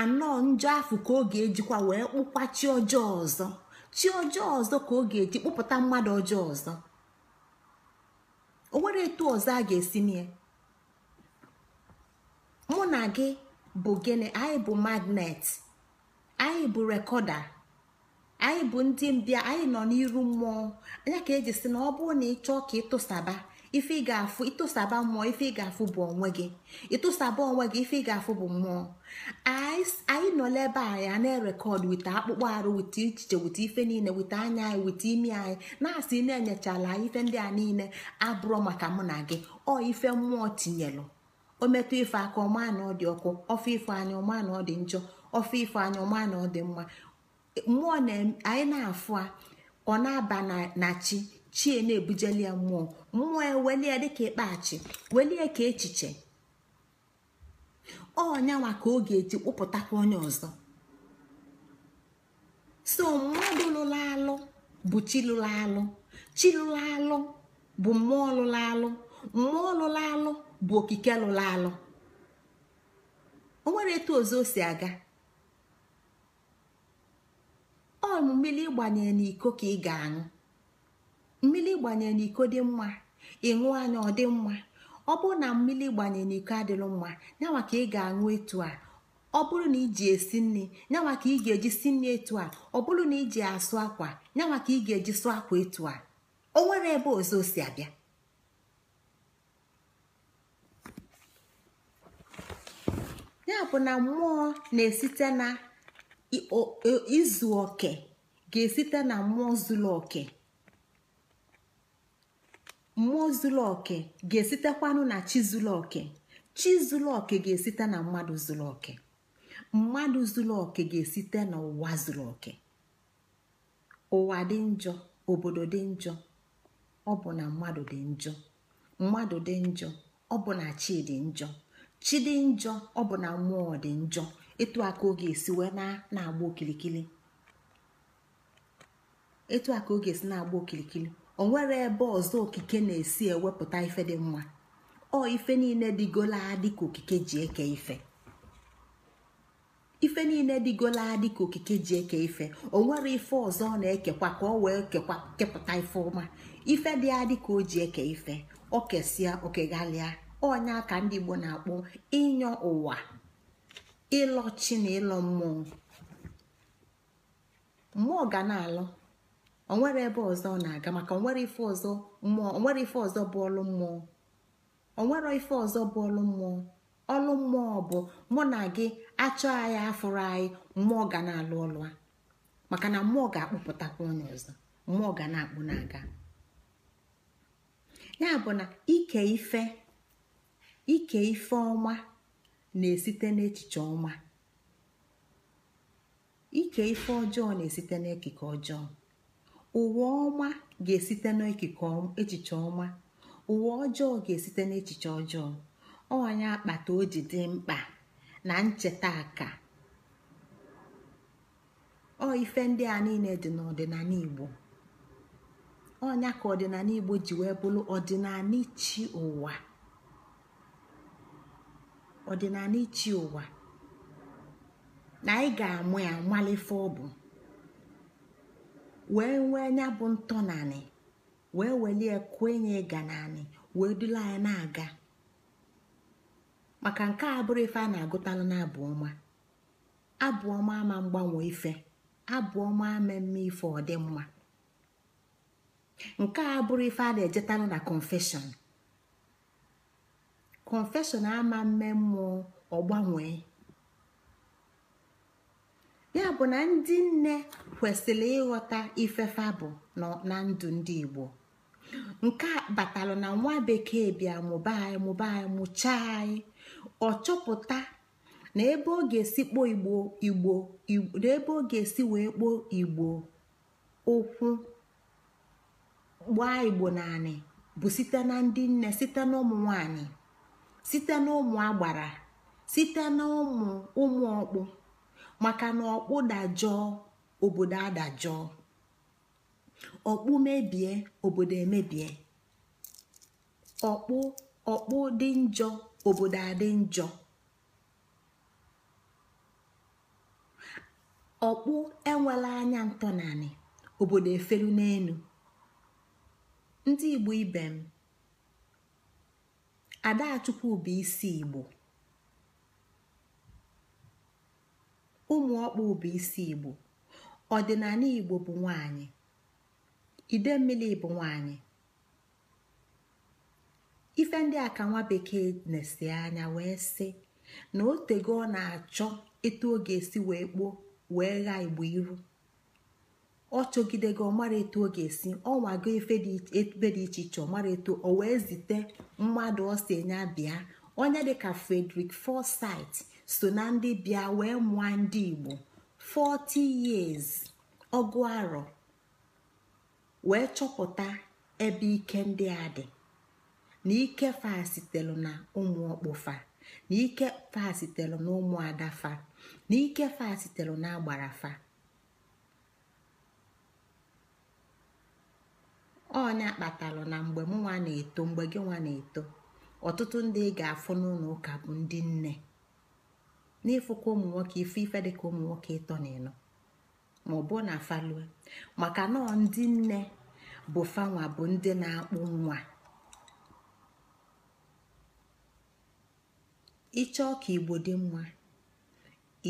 anọ njọ afụ ka ọ ga-ejikwa wee kpụkwa chi ọjọọ ọzọ chi ọjọọ ọzọ ka ọ ga-eji kpụpụta mmadụ ọjọọ ọzọ o nwere etu ọzọ a ga-esi nye mụ na gị bụ gịnị anyị bụ magnet anyị bụ rekọda anyị bụ ndị mbịa anyị nọ n'iru mmụọ anya ka eji sị na ọ bụrụ na ị chọọ ka ịtụsaba ife ị ga-afụ ịtụsaba mmụọ ife ị ga-afụ bụ onwe gị ịtụsaba onwe gị ife ị ga-afụ bụ mmụọ anyị nọla ebe a ya na-erekọd wita akpụkpọ arụ wita ichiche wita ife niile wita anya anyị wita imi anyị na-asị na-enyechala ife ndị a niile abụrọ maka mụ na gị ọ ife mmụọ tinyelụ o metụ ife aka ọma na ọ dị ọkụ ọfọ ife anya ọma na ọ dị njọ ọfọ ife anya ọma na ọ dị mma mmụọ anyị na-afụ a ọ na-aba na chi chie na-ebujeli ya mmụọ mmụọ e ya welie dịka ịkpachi welie ka echiche ọnyanwa ka ọ ga-eji kpụpụtakwa onye ọzọ so mmadụ lụrụ alụ bụ chi lụrụ alụ chi lụrụ alụ bụ mmụọ lụrụ alụ mmụọ lụrụ alụ bụ okike lụrụ alụ o nwere etu ozo o si aga ọ mmiri ịgbanye n'iko ka ị ga-aṅụ mmiri ịgbanye n'iko dị mma ịṅụ anya ọ dị mma ọ bụrụ na mmiri gbanye n'iko adịlụ mma nyanwa ka ị ga-aṅụ etu a ọ bụrụ na iji esi nri nyanwa ka ị ga-eji si nri etu a ọ bụrụ na iji asụ akwa nyanwa ka ị ga-eji sụ akwa etu a o nwere ebe ọzọ si abịa ya bụ na mmụọ na-esite na izu e, oke ga-esite na mmụọ zuru oke mmụọ zuru oke ga-esitekwanụ na chi zuru oke chi zuru oke ga-esite na mmadụ zuru oke mmadụ zuru oke ga-esite n'ụwa zuru oke ụwa dị njọ obodo dị njọ ọ bụ na mmadụ dị njọ mmadụ dị njọ ọ bụ na chi dị njọ chi dị njọ ọ bụ na mmụọ dị njọ etu a ka ọ ga-esi wee na-agba okilikili etu a ka ọ ga-esi na-agba okilikili o nwere ebe ọzọ okike na-esi ewepụta ife dị mma ọ ife niile dịgola adị ka okike ji eke ife ife niile dịgola adị ka okike ji eke ife o nwere ife ọzọ ọ na-ekekwa ka ọ wee kekwa kepụta ife ọma ife dị adị ka o ji eke ife o kesịa okegalịa ọnya ka ndị Igbo na-akpọ ịnyọ ụwa ịlọ chi na ịlọ mmụọ mmụọ ga na-alọ onwere ebe ọzọ na-aga maka onwere ife ọzọ mmụọ onwere ife ọzọ bụ ọlụ mmụọ onwere ife ọzọ bụ ọlụ mmụọ ọlụ mmụọ bụ mụ na gị achọ anyị afụrụ anyị mmụọ ga na-alụ ọlụ a maka na mmụọ ga-akpụpụtakwa onye ọzọ mmụọ ga na-akpụ na-aga ya bụ na ike ife ike ife ọma na-esite n'echiche ọma ike ife ọjọọ na-esite n'ekike ọjọọ ụwa ọma ga-esite n'ekike echiche ọma ụwa ọjọọ ga-esite n'echiche ọjọọ ọnya akpata o ji dị mkpa na ncheta aka ọ ife ndị a niile dị n'ọdịnala Igbo ọnya ka ọdịnala Igbo ji wee bụrụ ọdịnala chi ụwa ọdịnala ichi ụwa na anyị ga-amụ ya nwalefe ọ bụ wee nwee nya bụ ntọnanị wee welie kwenye ịga naanị wee dula anyị na-aga maka nke a bụrụ ife a na-agụtalụ na abụ ọma abụ ọma ama mgbanwe ife abụ ọma ama mme ife ọ mma nke a bụrụ ife a na-ejetalụ na confession confeshọn ama mme mmụọ ọ ya bụ na ndị nne kwesịrị ịghọta ifefa bụ na ndụ ndị igbo nke a batalụ na nwa bekee bịa mụba anyị mụba anyị mụchaa anyị ọ chọpụta na ebe ọ ga-esi kpoo igbo igbo na ebe ọ esi wee kpoo igbo ụkwụ gbaa igbo naanị bụ site na ndị nne site na ụmụ nwanyị site n'ụmụ agbara site n'ụmụ ụmụ ọkpụ maka na ọkpụ dajọọ obodo adajọọ ọkpụ mebie obodo emebie ọkpụ ọkpụ dị njọ obodo adị njọ ọkpụ enwela anya ntọnanị obodo efelu n'elu ndị igbo ibe m adachukwu bụ isi igbo ụmụọkpụ bụ isi igbo ọdịnala igbo bụ nwanyị ide mmiri bụ nwanyị ife ndị a ka nwa bekee na-esi anya wee sị na otego ọ na-achọ eto ọ ga-esi wee kpoo wee ghaa igbo iru ọ chọgide gị ọmara etu ọ ga-esi ọnwa go ebe dị iche iche ọmara etu o wee zite mmadụ ọ si enye bịa onye dịka Frederick fosait so na ndị bịa wee mụọ ndị Igbo 40 years ọgụ arọ wee chọpụta ebe ike ndị a dị na ike fa sitelu na ụmụ ọkpụfa na ike fa sitelu na ụmụ adafa na ike fa sitelu na agbarafa ọnya kpatalụ na mgbe nwa na-eto mgbe gị nwa na-eto ọtụtụ ndị ị ga-afụ n'ụlọ ụka bụ ndị nne n'ịfụkwa ụmụ nwoke ife ife dịka ụmụ nwoke ịtọ na ịnọ ma ọ bụ na falue maka na ndị nne bụ fanwa bụ ndị na-akpụ nwa ịchọọ ka igbo dị mma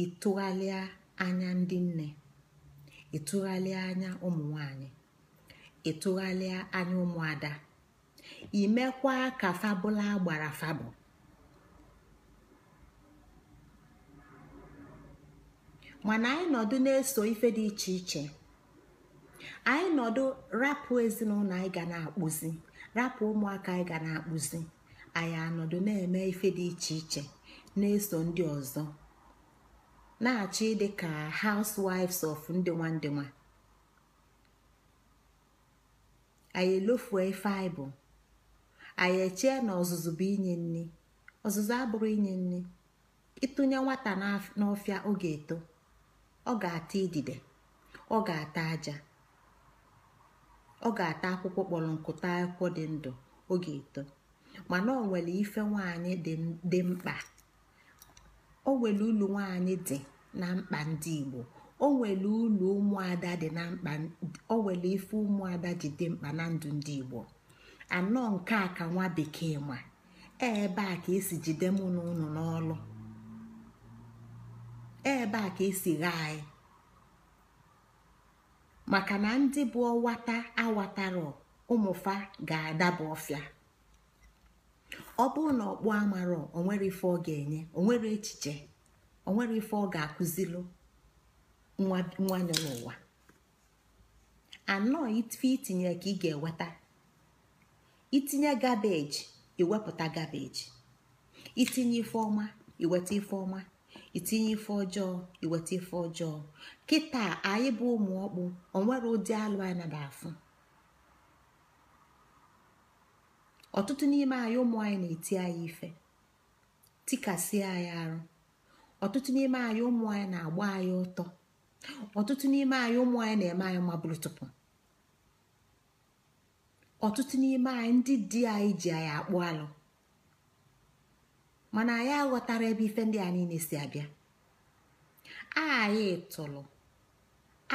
ịtụgharịa anya ndị nne ịtụgharịa anya ụmụ nwanyị ịtụgharịa anya ụmụada imekwa ka fabụla gbara fabụ mana anyị nọdụ na-eso ife dị iche iche anyị nọdụ rapụ ezinụlọ anyị ga na-akpụzi rapụ ụmụaka anyị ga na-akpụzi anyị anọdụ na-eme ife dị iche iche na-eso ndị ọzọ na achị dị ka housewives of ndị nwa nwa anyị elofue ife anyị bụ anyị echee na ọzụzụ bụ inye nri ọzụzụ abụrụ inye nri ịtụnye nwata n'ọfịa ọ ga-eto ọ ga-ata idide ọ ga-ata aja ọ ga-ata akwụkwọ kpọrọ nkụta akwụkwọ dị ndụ oge eto mana o nwere ife nwaanyị dị mkpa o nwere ulu nwaanyị dị na mkpa ndị Igbo o nwere ulu ụmụada dị na mkpa o nwere ife ụmụada ji dị mkpa na ndụ ndị igbo anọ nke a ka nwa bekee ma e ebe a ka esi jide mụ na ụnụ n'ọlụ e ebe a ka esi ghaa anyị maka na ndị bụ ọwata awatara ụmụfa ga-adaba ọfịa ọ bụrụ na ọkpụ amarọ onwere ife ọ ga-enye onwere echiche onwere ife ọ ga-akụzilu nwanyị n'ụwa anọ ife itinye ka ị ga-eweta itinye gabeji iwepụta gabeji itinye ife ọma iweta ife ọma itinye ife ọjọọ iweta ife ọjọọ kịta anyị bụ ụmụ ọkpụ onwere ụdị alụ anyị nada afụ ọtụtụ n'ime anyị ụmụ anyị na-eti anyị ife tikasịa anyị arụ ọtụtụ n'ime anyị ụmụ anyị na-agba anyị ọtọ ọtụtụ n'ime anyị ụmụ anyị na-eme anyị mabụrụ tupu ọtụtụ n'ime anyị ndị di anyị ji anyị akpụ alụ mana anyị aghọtara ebe ife ndị a niile si abịa anyị tụrụ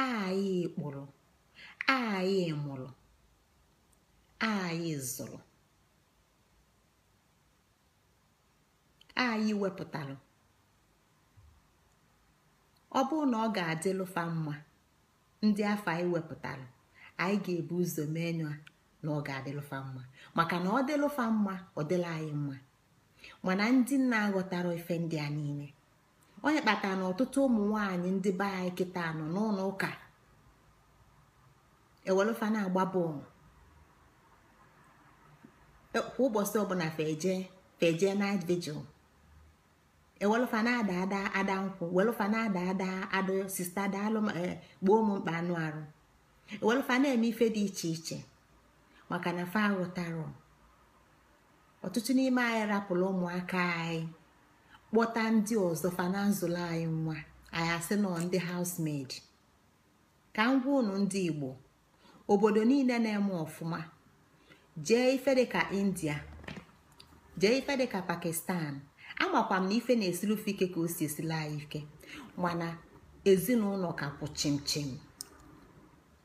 anyị kpụrụ anyị mụrụ anyị zụrụ anyị wepụtara ọ bụrụ na ọ ga-adịlụfa mma ndị afọ anyị wepụtara anyị ga-ebu ụzọ mee nyụa na ọ ga-adịlụfa mma maka na ọ dịlụfa mma ọ dịla anyị mma mana ndị nna aghọtara ife ndị a niile onye kpatara na ọtụtụ ụmụ nwaanyị ndị be anyị kịta nọ n'ụlọ ụka ewelụfa na-agba bọọlụ e, kwa ụbọchị ọbụla feje feje night vigil ewelụfa ada ada ada nkwụ welụfa ada ada sista daalụ eh, gbuo m mkpa anụ arụ ewelụfa eme ife dị iche iche maka na fa aghọtara ọtụtụ n'ime anyị rapụrụ ụmụaka anyị kpọta ndị ọzọ fa nzụlọ anyị nwa anyị asị nọ ndị housemaid ka m gwa ndị igbo obodo niile na-eme ọfụma jee ife dịka india jee ife dịka pakistan amakwa na ife na-esiri ofe ike ka o si esila anyị ike mana ezinụlọ ka kwụ chimchim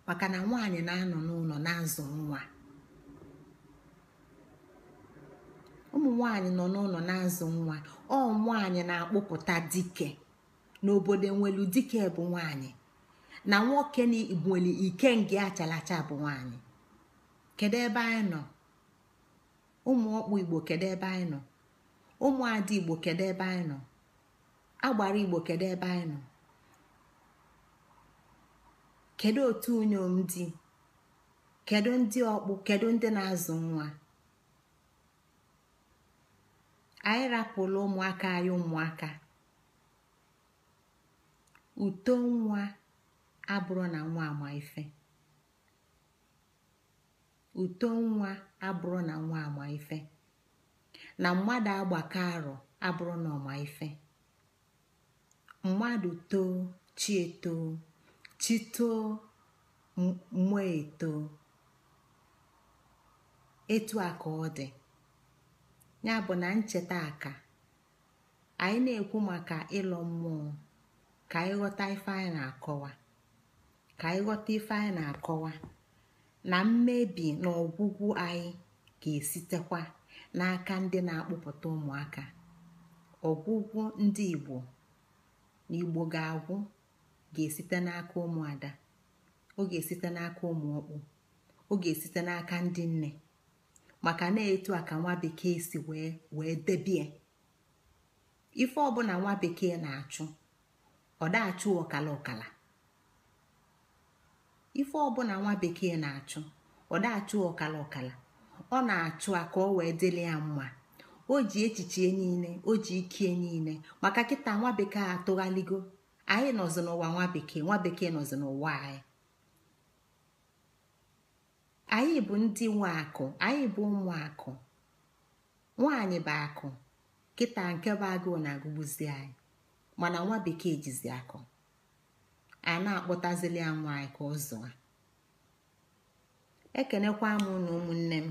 maka na nwaanyị na-anọ n'ụlọ na nwa ụmụ nwaanyị nọ n'ụlọ na-azụ nwa ọ nwaanyị na-akpụpụta dike n'obodo nwelu dike bụ nwaanyị na nwoke nweli ike nge achalacha bụ nwaanyị kedu ebe anyị nọ ụmụ ọkpụ igbo kedu ebe anyị nọ ụmụada igbo kedu ebe anyị nọ agbara igbo kedu ebe anyị nọ kedu otu unyom dị kedu ndị ọkpụ kedu ndị na-azụ nwa anyị rapụla ụmụaka anyị ụmụaka uto nwa abụrụ na nwa ama ife na mmadụ agbakọ arọ abụrụ n'ọma ife mmadụ too chi eto, chi too mmụọ etoo etu a ka ọ dị ya bụ na ncheta aka anyị na-ekwu maka ịlọ mmụọ ka anyị ghọta ife anyị na-akọwa ka anyị ghọta na-akọwa na mmebi na ọgwụgwụ anyị ga-esitekwa n'aka ndị na-akpụpụta ụmụaka ọgwụgwọ ndị igbo na igbo ga-agwụ ga-esite n'aka ụmụada ọ ga-esite n'aka ụmụọkpụ ọ ga-esite n'aka ndị nne maka na-etu a ka nwa bekee si wee wee debie ife ọbụla nwa bekee na-achụ ọ dachụ ọkala ọkala ife ọbụla nwa bekee na-achụ ọ dachụ ọkala ọkala ọ na-achụ a ka ọ wee dịrị ya mma o ji echiche niile o ji ikie niile maka kịta nwa bekee atụghaligo anyị nọzi n'ụwa nwa bekee nwa bekee nọzi n'ụwa anyị anyị bụ ndị nwe akụ anyị bụ ụmụ akụ nwaanyị bụ akụ kịta nke bụ agụụ na-agụgbuzi anyị mana nwa bekee jizi akụ a na-akpọtazili ya nwa anyị ka ọ zụa ekenekwa m na ụmụnne m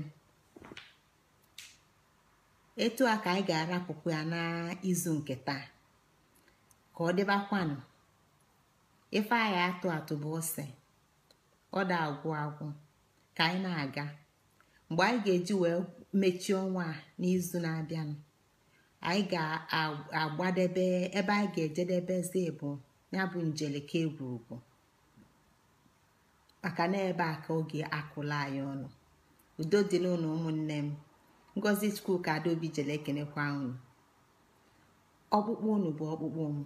etu a ka anyị ga-arapụkwa ya n'izu nke taa ka ọ dịbakwanụ ife anyị atụ atụ bụ ose ọ da agwụ agwụ ka anyị na-aga mgbe anyị ga-eji wee mechie ọnwa a n'izu na-abịanụ anyị ga-agbadebe ebe anyị ga ejedebe bụ ya bụ njeleke egwurugwu maka na ebe a ka oge akụla anyị ọnụ udo dị n'ụlọ ụmụnne m ngozi skuul ka adaobi jele ekenekwa unu ọkpụkpụ unu bụ ọkpụkpụ m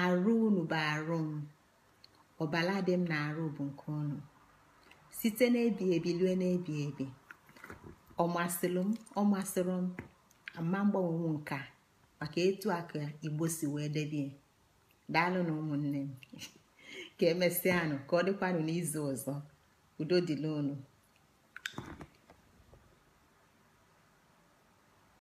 arụ unu bụ arụ m ọbala dị m na arụ bụ nke unu site n'ebi ebi lue n'ebi ebi ọmasịrị m ọmasịrị m ama mgbanwe m nka maka etu aka igbo si wee debie daalụ na ụmụnne m ka emesịanụ ka ọ dịkwanụ n'izu ọzọ udo dịla unu